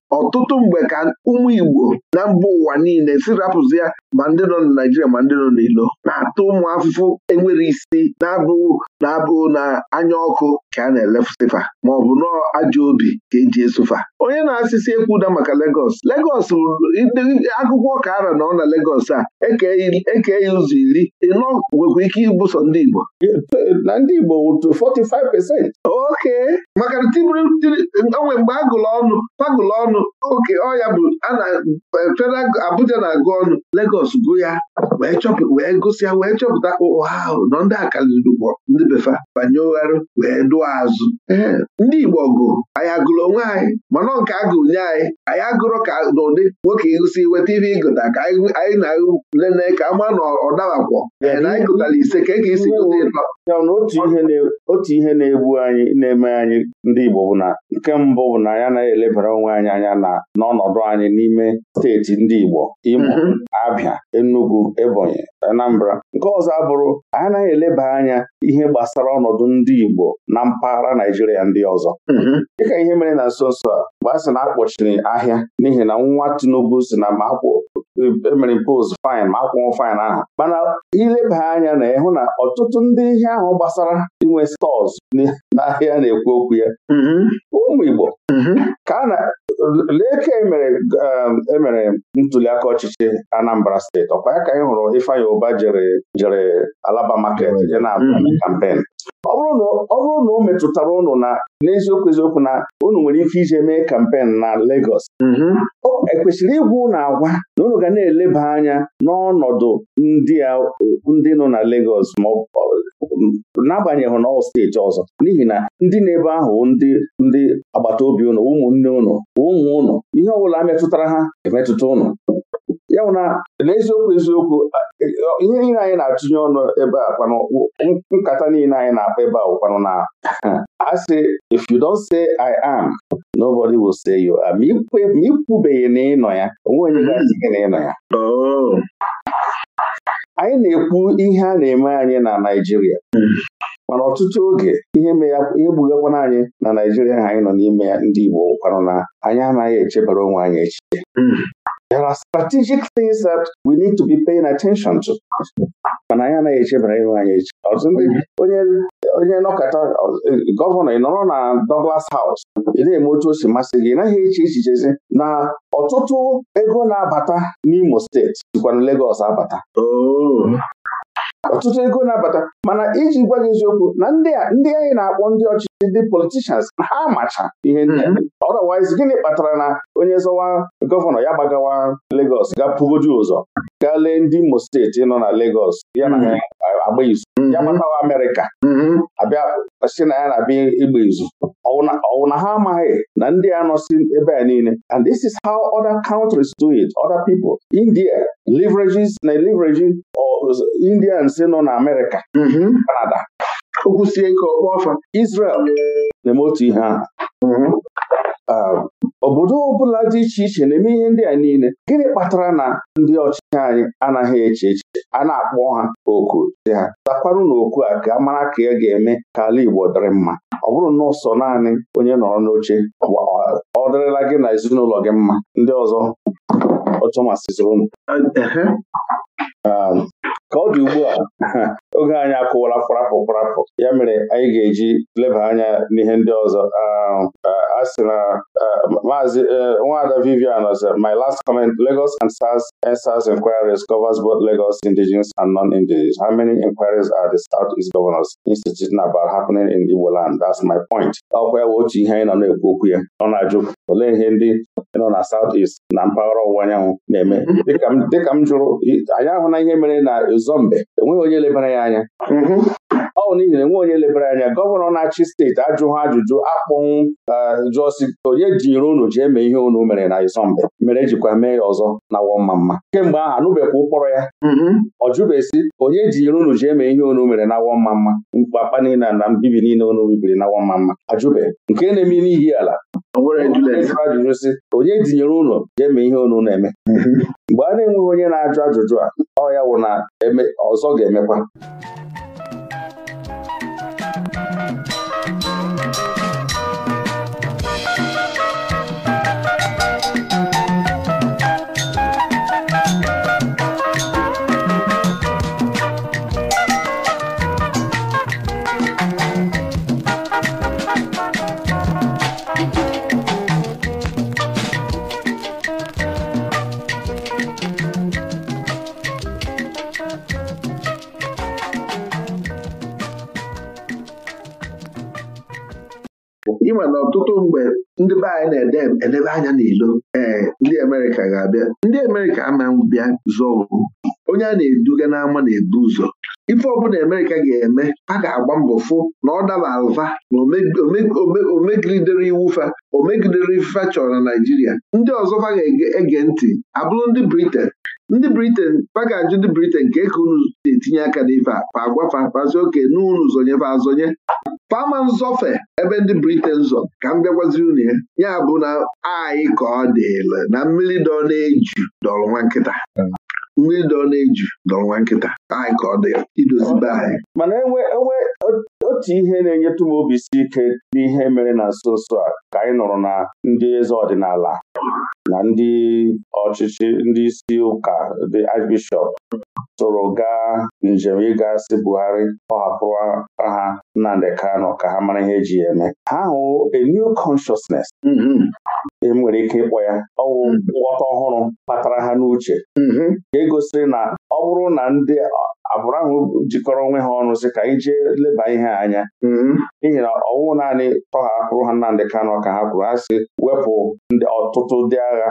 ọtụtụ mgbe ka ụmụ Igbo na mba ụwa niile si ya ma ndị nọ na Naijiria ma ndị nọ n'ilo na-atụ ụmụ afụfụ enwere isi na-abụghị na-abụghị na anya ọkụ ka a na-elefụsịfa ma ọ bụ nọọ ajọ obi ka eji esụfa onye na-asịsị ekwuda maka Legọs Legọs akwụkwọ ka ara nọ na Legọs a eke e ya ụzọ iri ịnọ nwekwa ike ibụso ndị Igbo na ndị Igbo 45 ok maka onwe mgbe agụlụ ọnụ agụlụ ọnụ oke ọya bụ eh, Abuja na-agụ ọnụ Lagos gụ ya wee gụsịa wee chọpụta ụha ahụ nọ ndị akaliriugbo ndị befa banye ụgharụ wee dụọ azụ ndị Igbo gụ anyị agụrụ onwe anyị mana nke a nye anyị anyị agụrụ ka n'ụdị nwoke ịgụsị weta ihe ịgụta ka anyị na-lele ka ama na ọ dabakwọ na anyị gụtara ise ka e ga-esi gụta ịtọ
ya na otu ihe na-egbu anyị na-eme anyị ndị Igbo bụ na nke mbụ bụ na ya anaghị elebara onwe anyị anya na n'ọnọdụ anyị n'ime steeti ndị Igbo Imo mhm. Abịa Enugu Ebonyi Anambra nke ọzọ abụrụ anyị anaghị eleba anya ihe gbasara ọnọdụ ndị Igbo na mpaghara Naijiria ndị ọzọ mhm. dịka ihe mere na nso nso a mgbe a sị na akpọchiri ahịa n'ihi na nwa Tinubu si na ma akwụ emere e post fine ma akwụnwụ fin ahụ mana ileba anya na ịhụ na ọtụtụ ndị ihe ahụ gbasara inwe stọọs n'ahịa na-ekwu okwu ya mm-hmm. ụmụ Igbo mm-hmm. ka a na lee emere um, e ntuliaka ọchịchị Anambra steeti ọkwa ya ka anyị hụrụ Ifeanyi Ụba jere jere Alaba market mm-hmm. ya na kampen ọ bụrụ na o metụtara ụnụ na n'eziokwu eziokwu na unu nwere ike ije mee kampen na Lagos mm-hmm. ekwesịrị ịgwa ụnụ agwa na unu ga na-eleba anya n'ọnọdụ ndị nọ na Lagos ma n'agbanyeghị na steeti ọzọ n'ihi na ndị na-ebe ahụ ndị ndị agbata obi ụnụ ụmụnne ụnụ ụmụ ụnụ ihe ọ bụla metụtara ha emetụta ụnụ ya bụ na n'eziokwu eziokwu e, e, ihe niile anyị na-atụnye ọnụ ebe a kwanụ nkata niile anyị na-akpa ebe a kwanụ na a sị if you don't say I am nobody will say you are ma ikwubeghị na ịnọ ya onwe onye ga-asị gị na ịnọ ya oh. anyị na-ekwu ihe a na-eme anyị na Naịjirịa mana ọtụtụ oge ihe gbugakwana anyị na Naịjirịa ha anyị nọ n'ime ya ndị Igbo kwanụ na anyị anaghị echebara onwe anyị echiche hmm. There are strategic things that we need to be paying attention to. mana anyị anaghị echebara ihu anyị echi onye nọkọta gọvanọ ị nọrọ na Douglas House ị na-eme otu o si masị gị ị naghị eche echichezi na ọtụtụ ego na-abata n'Imo steeti sikwa na Lagos abata oh. ọtụtụ ego na-abata mana iji gwa gị eziokwu na ndị a ndị anyị na-akpọ ndị ọchịchị ndị politishans ha macha ihe ndị ọdọwaiz mm-hmm. gịnị kpatara na onye zọwa gọvanọ ya gbagawa ga gapugoju ụzọ gaa lee ndị Imo steeti nọ na Legos. ya na mm-hmm. agba izu ya mm-hmm. gbatawa Amerịka abịa si na ya na-abịa ịgba izu ọwụ na ha amaghị na ndị a nọsi ebe a niile and this is how other countries do it other people India leverages na leverage indians nọ na Amerịka Kanada mm-hmm. okwusie ike ọkpọ ọfa Israel na-eme otu ihe ahụ mm-hmm. um, obodo ọbụla dị iche iche na-eme ihe ndị a niile gịnị kpatara na ndị ọchịchị anyị anaghị eche echiche a na-akpọ ha oku dị ha zakwarụ na okwu a ka mara ka ya ga-eme ka ala Igbo dịrị mma ọ bụrụ na ọsọ naanị onye nọrọ n'oche ọ dịrịla gị na ezinụlọ gị mma ndị ọzọ ọchọmasịziri ụnụ um
ka ọ dị ugbu a
oge anyị akụwala kwarapụ kwarapụ ya mere anyị ga-eji leba anya n'ihe ndị ọzọ um, uh, a sị na uh, maazị uh, nwada Vivian ọzọ my last comment Lagos and SARS SARS inquiries covers both Lagos indigenous and non-indigenous how many inquiries are the South East Governors Institute about happening in Igbo land that's my point ọkwa ya bụ otu ihe anyị nọ na-ekwu okwu ya ọ na-ajụ olee ihe ndị nọ na South East na mpaghara ọwụwa anyanwụ na-eme dịka m jụrụ anyị ahụ na ihe mere na zọmbe enweghị onye lebara ya anya mm-hmm. ọ bụ n'ihi na enweghị onye lebara anya gọvanọ na-achị steeti ajụghị ajụjụ akpọnwụ e, jụọ si onye jinyere unu ji eme ihe unu mere na Izombe mere ejikwa mee ya ọzọ na wọmma mma kemgbe ahụ anụbekwa ụkpọrọ ya mm-hmm. ọ jụbesi onye jinyere unu ji eme ihe unu mere na wọmma mma mkpapa niile na mbibi niile unu bibiri na wọmma mma ajụbe nke na-eme n'ihi ala ajụjụ sị onye tinyere ụlọ ga-eme ihe ọnụ na-eme mgbe a na-enweghị onye na-ajụ ajụjụ a ọ ya wụ na ọzọ ga-emekwa
ịma na ọtụtụ mgbe ndị be anyị na-edebe anya n'ilo ee eh, ndị Amerịka ga-abịa ndị Amerịka ama bịa zụọ wu onye a na-eduga n'ama na-ebu ụzọ ife ọbụla Amerịka ga-eme a ga-agba mbọ fụ na ọ daba alva na omegidere iwu fa omegidere ifefa chọrọ na Naịjirịa ndị ọzọ ga-ege ntị abụrụ ndị Briten ndị Briten fa ga-ajụ ndị Briten ka eke unu na-etinye aka n'ife a fa fazi oke n'unu zonye fa azonye fama nzọfe ebe ndị Briten zọ ka m bịagwaziri unu ya ya bụ na anyị ka ọ dịla na mmiri dọ na-eju dọrọ nwa nkịta
hmm. mmiri dọ na-eju dọrọ nwa nkịta anyị ka ọ dị idozibe hmm. anyị mana enwe e otu ihe na-enyetụ m obi isi ike n'ihe mere na nso nso a ka anyị nụrụ na ndị eze ọdịnala na ndị ọchịchị ndị isi ụka dị archbishọp soro gaa njem ịga Buhari ọhapụrụ hapụrụ ha Nnamdị Kano ka ha mara ihe eji ya eme ha hụ a new consciousness mm-hmm. e nwere ike ịkpọ ya ọwụ mm-hmm. nghọta ọhụrụ kpatara ha n'uche mm-hmm. egosiri na ọ bụrụ na ndị agbụrụ ahụ jikọrọ onwe ha ọnụ sị ka anyị jee leba ihe anya mm-hmm. n'ihi na ọnwụ naanị tọha kwụrụ ha Nnamdị Kanụ ka ha kwuru ha sị wepụ ọtụtụ ndị agha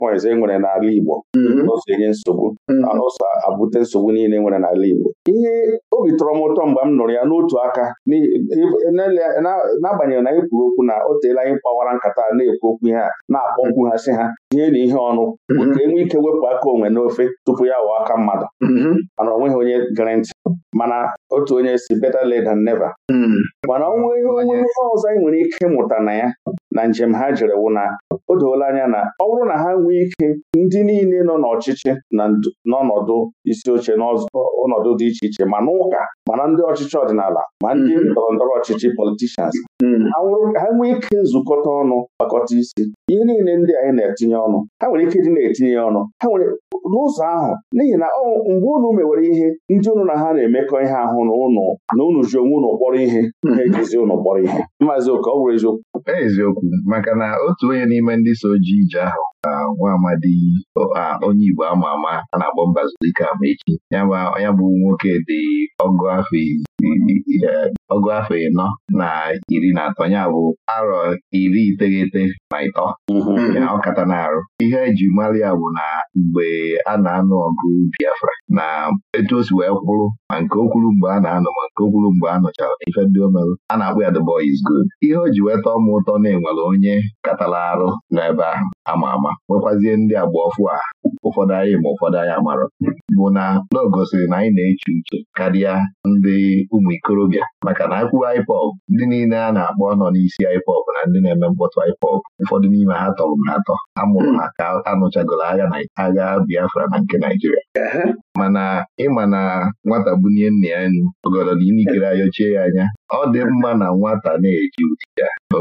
points e nwere n'ala Igbo n'ụzọ mm-hmm. enye nsogbu mm-hmm. na n'ụzọ abute nsogbu niile e nwere n'ala Igbo ihe obi tọrọ m ụtọ mgbe m nụrụ ya n'otu aka n'agbanyeghị na anyị e kwuru okwu na o teela anyị kpawara nkata na-ekwu okwu ihe a na-akpọkwu ha sị ha tinye na ihe ọnụ mhm. ka e nwee ike wepụ aka onwe n'ofe tupu ya wụọ aka mmadụ mhm. mana o nweghị onye gere ntị mana otu onye si better late than never mhm. mana ọnwụ ihe onye ọzọ anyị nwere ike mụta na ya na njem ha jere wụ na o doola anya na ọ bụrụ na ha nwee ike ndị niile nọ n'ọchịchị na n'ọnọdụ isi oche n'ọnọdụ dị iche iche ma n'ụka mana ndị ọchịchị ọdịnala ma ndị ndọrọ ndọrọ ọchịchị politishans ha nwee ike nzukọta ọnụ kpakọta isi ihe niile ndị anyị na-etinye ọnụ ha nwere ike ịdị na-etinye ya ọnụ ha nwere n'ụzọ ahụ n'ihi na mgbe unu mewere ihe ndị ụnụ na ha na-emekọ ihe ahụ na ụnụ na unu ji onwe unu kpọrọ ihe hmm. ha ejizi ụnụ kpọrọ ihe maazị oke ọ bụrụ eziokwu eziokwu maka
na otu onye n'ime ndị so ji ije ahụ nwa amadi onye Igbo ama ama a na-akpọ Mbazulike Amaechi ya bụ nwoke dị ọgụ afọ e, ọgụ afọ ịnọ na iri na atọ ya bụ arọ iri iteghete na ịtọ mhm. ọ kata na arụ ihe eji mara ya bụ na mgbe a na-anụ ọgụ Biafra na etu o si wee kwụrụ ma nke o kwuru mgbe a na-anọ ma nke o kwuru mgbe a nụchara ife ndị o merụ a na-akpọ ya the boy is good ihe o ji weta ọmụ ụtọ na-enwere onye katara arụ n'ebe ahụ ama ama nwekwazie ndị agba ọfụ a ụfọdụ anyị ma ụfọdụ anyị amarọ bụ na o gosiri na anyị na-eche uche karịa ndị ụmụ ikorobịa maka na akwụwa IPOB ndị niile a na-akpọ nọ n'isi IPOB na ndị na-eme mkpọtụ IPOB ụfọdụ n'ime ha tọrọ m atọ amụrụ ha ka anụchagoro agha na agha Biafra na nke Naijiria mana ịma na nwata bunye nna ya nnu ogodo na inikere ayọchie ya anya ọ dị mma na nwata na-eji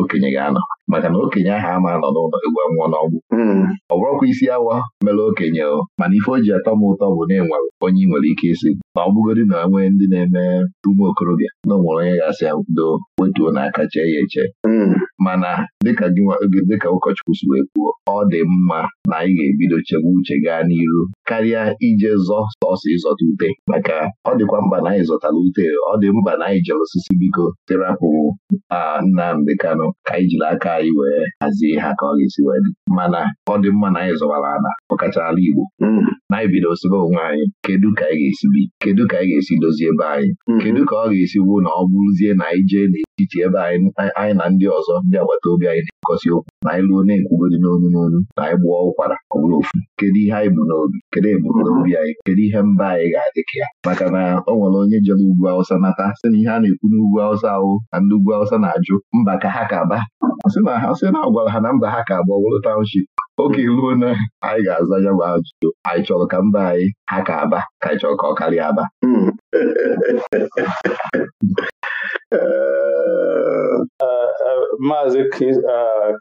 okenye ga-anọ maka na okenye ahụ ama anọ n'ụlọ egwu nwụọ n'ọgwụ hmm. ọ bụrụkwa isi awa mere okenye mana ife o ji atọ m ụtọ bụ na enwere onye ị nwere ike isi ma ọ na nwee ndị na-eme ụmụ okorobịa na onwere onye ga-asị ya do wetuo n'aka chee ya eche hmm. mana dịka dịka ụkọchukwu si wee kwuo ọ dị mma na anyị ga-ebido chebe uche gaa n'iru karịa ije zọ sọsọ ịzọta ute maka ọ dịkwa mkpa na anyị zọtara ute ọ dị mkpa na anyị jere osisi biko terapụ Nnamdị Kanụ ka anyị jiri aka anyị wee hazie ha ka ọ ga-esi wee dị mana ọ dị mma na anyị zọwara ala ọkacha ala Igbo hmm. na anyị bido osebe onwe anyị kedu ka anyị ga-esi bi kedu ka anyị ga-esi dozie ebe anyị mhm. kedu ka ọ ga-esi bụ na ọ bụrụzie na anyị jee n'etiti ebe anyị na ndị ọzọ ndị agbata obi anyị na ekosi okwu na anyị lụọ na-ekwugodi n'onu n'onu na anyị gbụọ ụkwara ọ bụrụ ofu kedu ihe anyị bụ n'obi kedu ebumnobi anyị kedu ihe mba anyị ga-adị ka ya maka na ọ nwere onye jere ugwu awụsa nata sị na ihe a na-ekwu n'ugwu awụsa ahụ na ndị ugwu awụsa na-ajụ mba ka ha ka ba sị na ha sị na agwara gwara ha na mba ha ka abụọ wụrụ taụnship oge ruo na anyị ga-aza ya bụ ajụjụ anyị chọrọ ka mba
anyị ha ka aba ka anyị chọrọ ka ọ karịa aba Maazị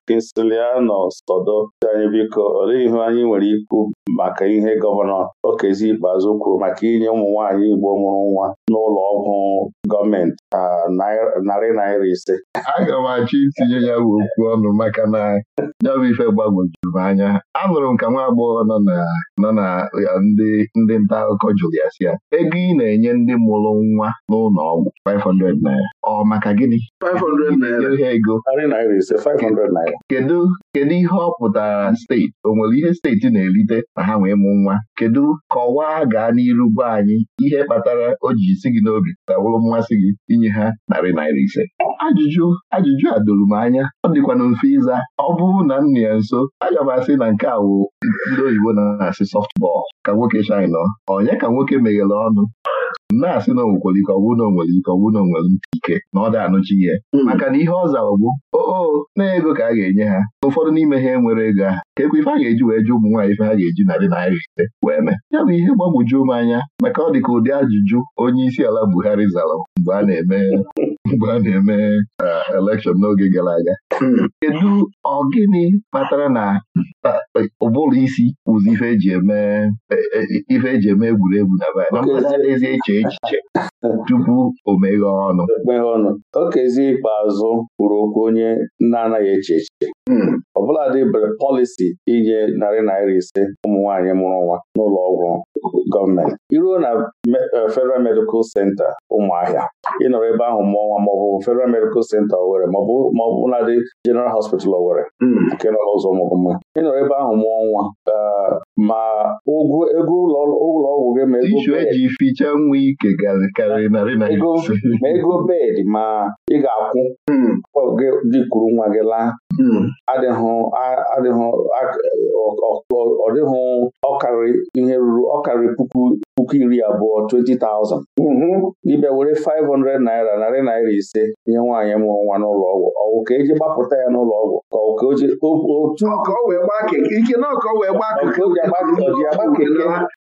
Kinsiliano Sọdọ anyị biko olee ihe anyị nwere ikwu maka ihe gọvanọ Okezi Ikpeazụ kwuru maka inye ụmụ nwaanyị Igbo mụrụ nwa n'ụlọ ọgwụ gọọmenti narị naira ise
aga m achọ itinye ya okwu ọnụ maka na ya bụ ife gbagwojuru m anya anụrụ m ka nwa agbọghọ nọ na ndị nta akụkọ jụrụ ya ego ị na-enye ndị mụrụ nwa n'ụlọ ọgwụ 500 naira ọ maka gịnị
500 naira ego kedu
kedu ihe ọ pụtara steeti o nwere ihe steeti na-erite ma ha wee mụ nwa kedu kọwaa gaa n'iru gwa anyị ihe kpatara o ji isi gị n'obi tawụrụ mmasị gị inye ha narị naira naira ise ajụjụ ajụjụ a doro m anya ọ dịkwana mfe ịza ọ bụrụ na m nọ ya nso aga m asị na nke a wụ ndị oyibo na-asị sọftbọl ka nwoke chaịna onye ka nwoke meghere ọnụ na-asị na onwekwere ike ọ bụrụ na nwere ike ọ bụrụ na nwere ike na ọ da-anụchi ihe hmm. maka na ihe ọ zara bụ oo oh, oh, na ego ka a ga-enye ha ụfọdụ n'ime ha enwere ego a, ka ekwe ife a ga-eji wee jụ ụmụ nwaanyị ife ha ga-eji narị naira ise wee mee ya bụ ihe gbagwoju m anya maka ọ dị ka ụdị ajụjụ onye isi ala Buhari zara mgbe a na-eme mgbe a na-eme uh, elekshọn n'oge gara aga hmm. kedu ọ gịnị kpatara na bụrụ isi ụzọ ife eji eme e, e,
e eme egwuregwu na be na eche echiche tupu o meghe ọnụ o kezi ikpeazụ kwuru okwu onye na-anaghị eche echiche Hmm. ọbụladị bere pọlisi inye narị naira ise ụmụ nwanyị mụrụ nwa n'ụlọ ọgwụ gọọmenti iruo na eh, Federal Medical Center ụmụahịa ịnọrọ ebe ahụ mụọ nwa maọbụ Federal Medical Center Owerri maọbụ nadị General Hospital Owerri hmm. nke nọ n'ụzọ ụmụgụmma ịnọrọ ebe ahụ mụọ nwa eh, ma ụgwọ ego ụlọ ọgwụ gị ma
ego bedị
ma ị ga-akwụ hmm. gị dịkwuru nwa gị laa Hmm. adịghị ọ dịghị ọkarị ihe ruru ọkarị puku puku iri abụọ 20,000 Ibe mm-hmm. were 500 naira narị naira ise nye nwaanyị mụrụ nwa n'ụlọ ọgwụ ọwụ ka eji gbapụta ya n'ụlọ ọgwụ ka ọ ka oji agba keke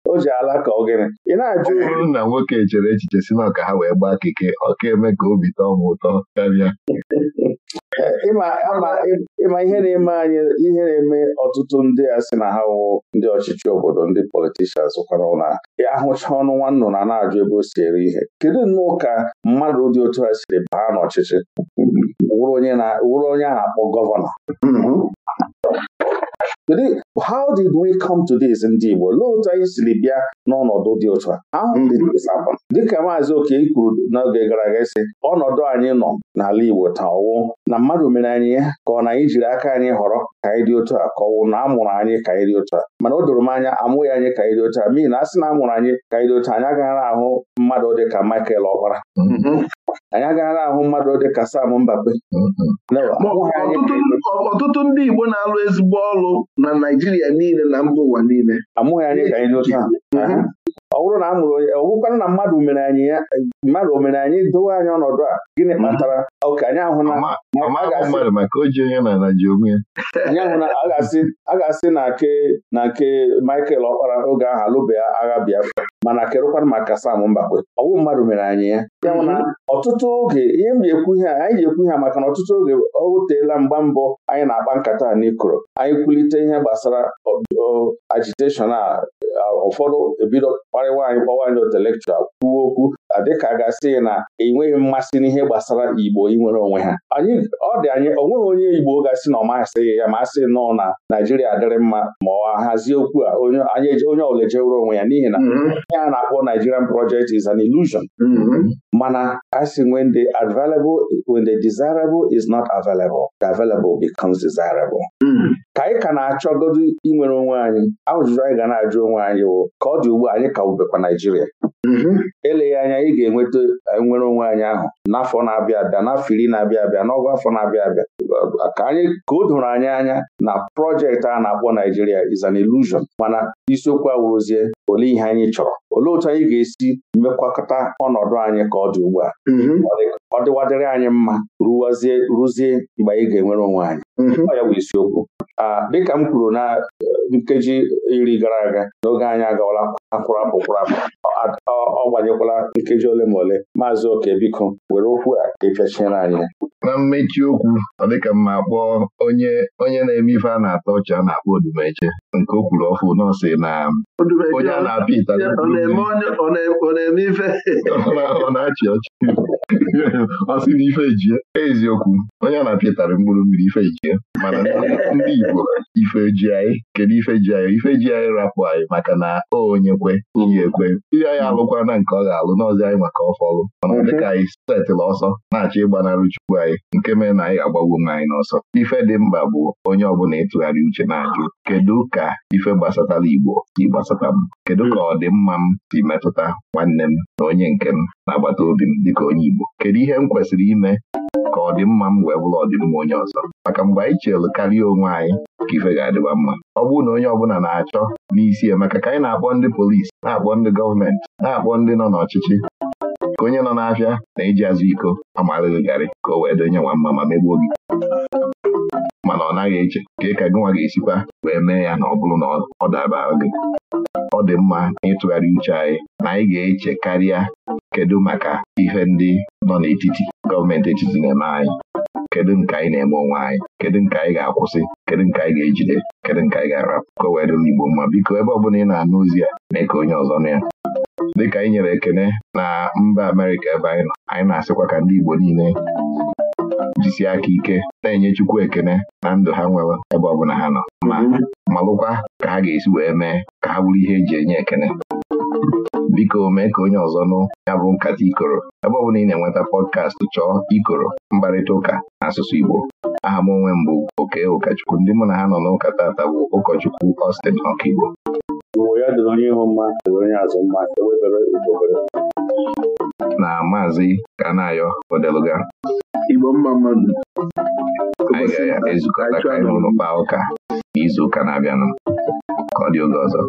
o ji ala ka ogene ị na-ajụ
nna nwoke chere echiche si na ọka ha wee gbaa keke ọ ka eme
ka obi tọọ m ụtọ karịa
ịma ihe na-eme anyị ihe na-eme ọtụtụ ndị a sị na ha wụ ndị ọchịchị obodo ndị politishans kwara na ahụcha ọnụ nwa na-ajụ ebe o si ere ihe kedu nnọọ ka mmadụ dị otu a siri baa n'ọchịchị wụrụ onye a na-akpọ gọvanọ mm-hmm. Kedu how did we come to this ndị Igbo lee otu anyị siri bịa n'ọnọdụ dị otu a how did this happen dịka maazị Oke kwuru n'oge gara aga isi ọnọdụ anyị nọ n'ala Igbo taa ọwụ na mmadụ mere anyị ya ka ọ na anyị jiri aka anyị họrọ ka anyị dị otu a ka ọwụ na amụrụ anyị ka anyị dị otu a mana o doro m anya amụghị anyị ka anyị dị otu a n'ihi na asị na amụrụ anyị ka anyị dị otu anyị agaghị ahụ mmadụ dị ka Michael Ọkpara anyị agaghị ahụ mmadụ dị ka Sam Mbape ọtụtụ ndị Ogbe na-alụ ezigbo ọrụ na Naijiria niile na mba ụwa niile. Amụghị anyị ka anyị dị otú ahụ. ọ bụrụ na a mụrụ onye ọgwụkwanụ na mmadụ mere anyị ya e, mmadụ o mere anyị dowe anyị ọnọdụ a gịnị kpatara oke anyị ahụ na a ga-asị na nke na nke Michael Ọkpara oge ahụ alụbeghị agha Biafra mana kerụkwanụ maka Sam Mbakwe ọwụ mmadụ mere anyị ya ya na mhm. ọtụtụ oge ihe m ji ekwu ihe anyị ji ekwu ihe maka na ọtụtụ oge ọ wuteela mgba mbọ anyị na-akpa nkata a n'ikoro anyị kwulite ihe gbasara agiteshọn a ụfọdụ ebido kparịwa anyị kpọwa anyị intellectual kwuo okwu adịka gasị na enweghị mmasị n'ihe gbasara Igbo inwere onwe ha anyị ọ dị anyị onweghị onye Igbo ga na ọ ya ma asị nọọ na Naijiria adịrị mma ma ọ hazie okwu a onye ọbụla ejewere onwe ya n'ihi na mm-hmm. ihe a na-akpọ Nigerian project is an illusion mm-hmm. mana asị we the available when the desirable is not available the available becomes desirable Hmm. ka anyị ka na-achọgodu inwere onwe anyị ajụjụ anyị ga na-ajụ onwe anyị wụ ka ọ dị ugbu anyị ka wụbekwa Naijiria mm-hmm. eleghị anya anyị ga-enweta e, nwere onwe anyị ahụ n'afọ na-abịa abịa n'afọ iri na-abịa abịa n'ọgụ afọ na-abịa abịa ka anyị ka o doro anyị anya na projekti a na-akpọ Naijiria is an illusion mana isiokwu awụrụzie olee ihe anyị chọrọ olee otu anyị ga-esi mekwakọta ọnọdụ anyị ka ọ dị ugbu a mm-hmm. ọ dịwadịrị anyị mma rụwazie rụzie mgbe anyị ga-enwere onwe anyị ọ mhm. ya bụ isiokwu dịka m kwuru na eh, nkeji iri gara aga n'oge anyị agawala akwụrụ akpụkwụrụ akpụ ọ gbanyekwala nkeji ole ma ole maazị oke biko were okwu a ka anyị
na mmechi okwu ọ dịka mma kpọọ onye onye na-eme ife a na ata ọcha a na-akpọ odumeche nke o kwuru ọfụ nọọsị na onye a na eme ife ọ na ife eziokwu onye a na-apịatara mkpụrụ mmiri ife ejie mana ndị Igbo ife ji anyị kedu ife ji anyị ife ji anyị rapụ anyị maka na o onye kwe ekwe Ihe anyị alụkwana nke ọ ga-alụ n'ọzi anyị maka ọfọlụ mana mhm. dịka anyị setịla ọsọ na-achọ ịgbanarị chukwu anyị nke mere na anyị ga-agbagbu nwa anyị n'ọsọ ife dị mkpa bụ onye ọbụla ịtụgharị uche na-ajụ kedu ka ife gbasatara Igbo si gbasata m kedu ka ọdịmma m si metụta nwanne m na onye nke m na-agbata obi m dịka onye Igbo kedu ihe m kwesịrị ime ka ọdịmma m wee bụrụ ọdịmma onye ọzọ maka mgbe anyị chelụ karịa onwe anyị ka ife ga adịwa mma ọ bụrụ na onye ọbụla na-achọ n'isi ya maka ka anyị na-akpọ ndị polisi na-akpọ ndị gọọmenti na-akpọ ndị nọ n'ọchịchị ka onye nọ n'afịa na-eji azụ iko amarịrị garị ka o wee donye nwa mma ma megbuo gị mana ọ naghị eche ka ị ka gị nwa ga-esikwa wee mee ya na ọ bụrụ na ọ daba gị ọ dị mma n'ịtụgharị uche anyị na anyị ga-eche karịa kedu maka ihe ndị nọ n'etiti gọọmenti etiti na-eme anyị kedu nke anyị na-eme onwe anyị kedu nke anyị ga-akwụsị kedu nke anyị ga-ejide kedu nke anyị ga-arapụ ka o wee dịla Igbo mma biko ebe ọ bụla ị na-anụ ozi ya mee ka onye ọzọ nụ ya dịka anyị nyere ekene na mba Amerịka ebe anyị nọ anyị na-asịkwa ka ndị Igbo niile jisi aka ike na-enye Chukwu ekene na ndụ ha nwere ebe ọ bụla ha nọ ma malụkwa ka ha ga-esi wee mee ka ha bụrụ ihe eji enye ekene biko mee ka onye ọzọ nụ ya bụ nkata ikoro ebe ọ bụla ị na-enweta pọdkastị chọọ ikoro mkparịta ụka n'asụsụ Igbo aha m onwe mbụ bụ oke ụkọchukwu ndị mụ na ha nọ n'ụka tata bụ ụkọchukwu ọstin Ọkaigbo e na maazị Kanayo Odeluga Igbo mma mmadụ. anyị ga-ezukọta ka anyị hụrụ kpaa
ụka n'izuụka ụka na-abịanụ ka ọ dị oge ọzọ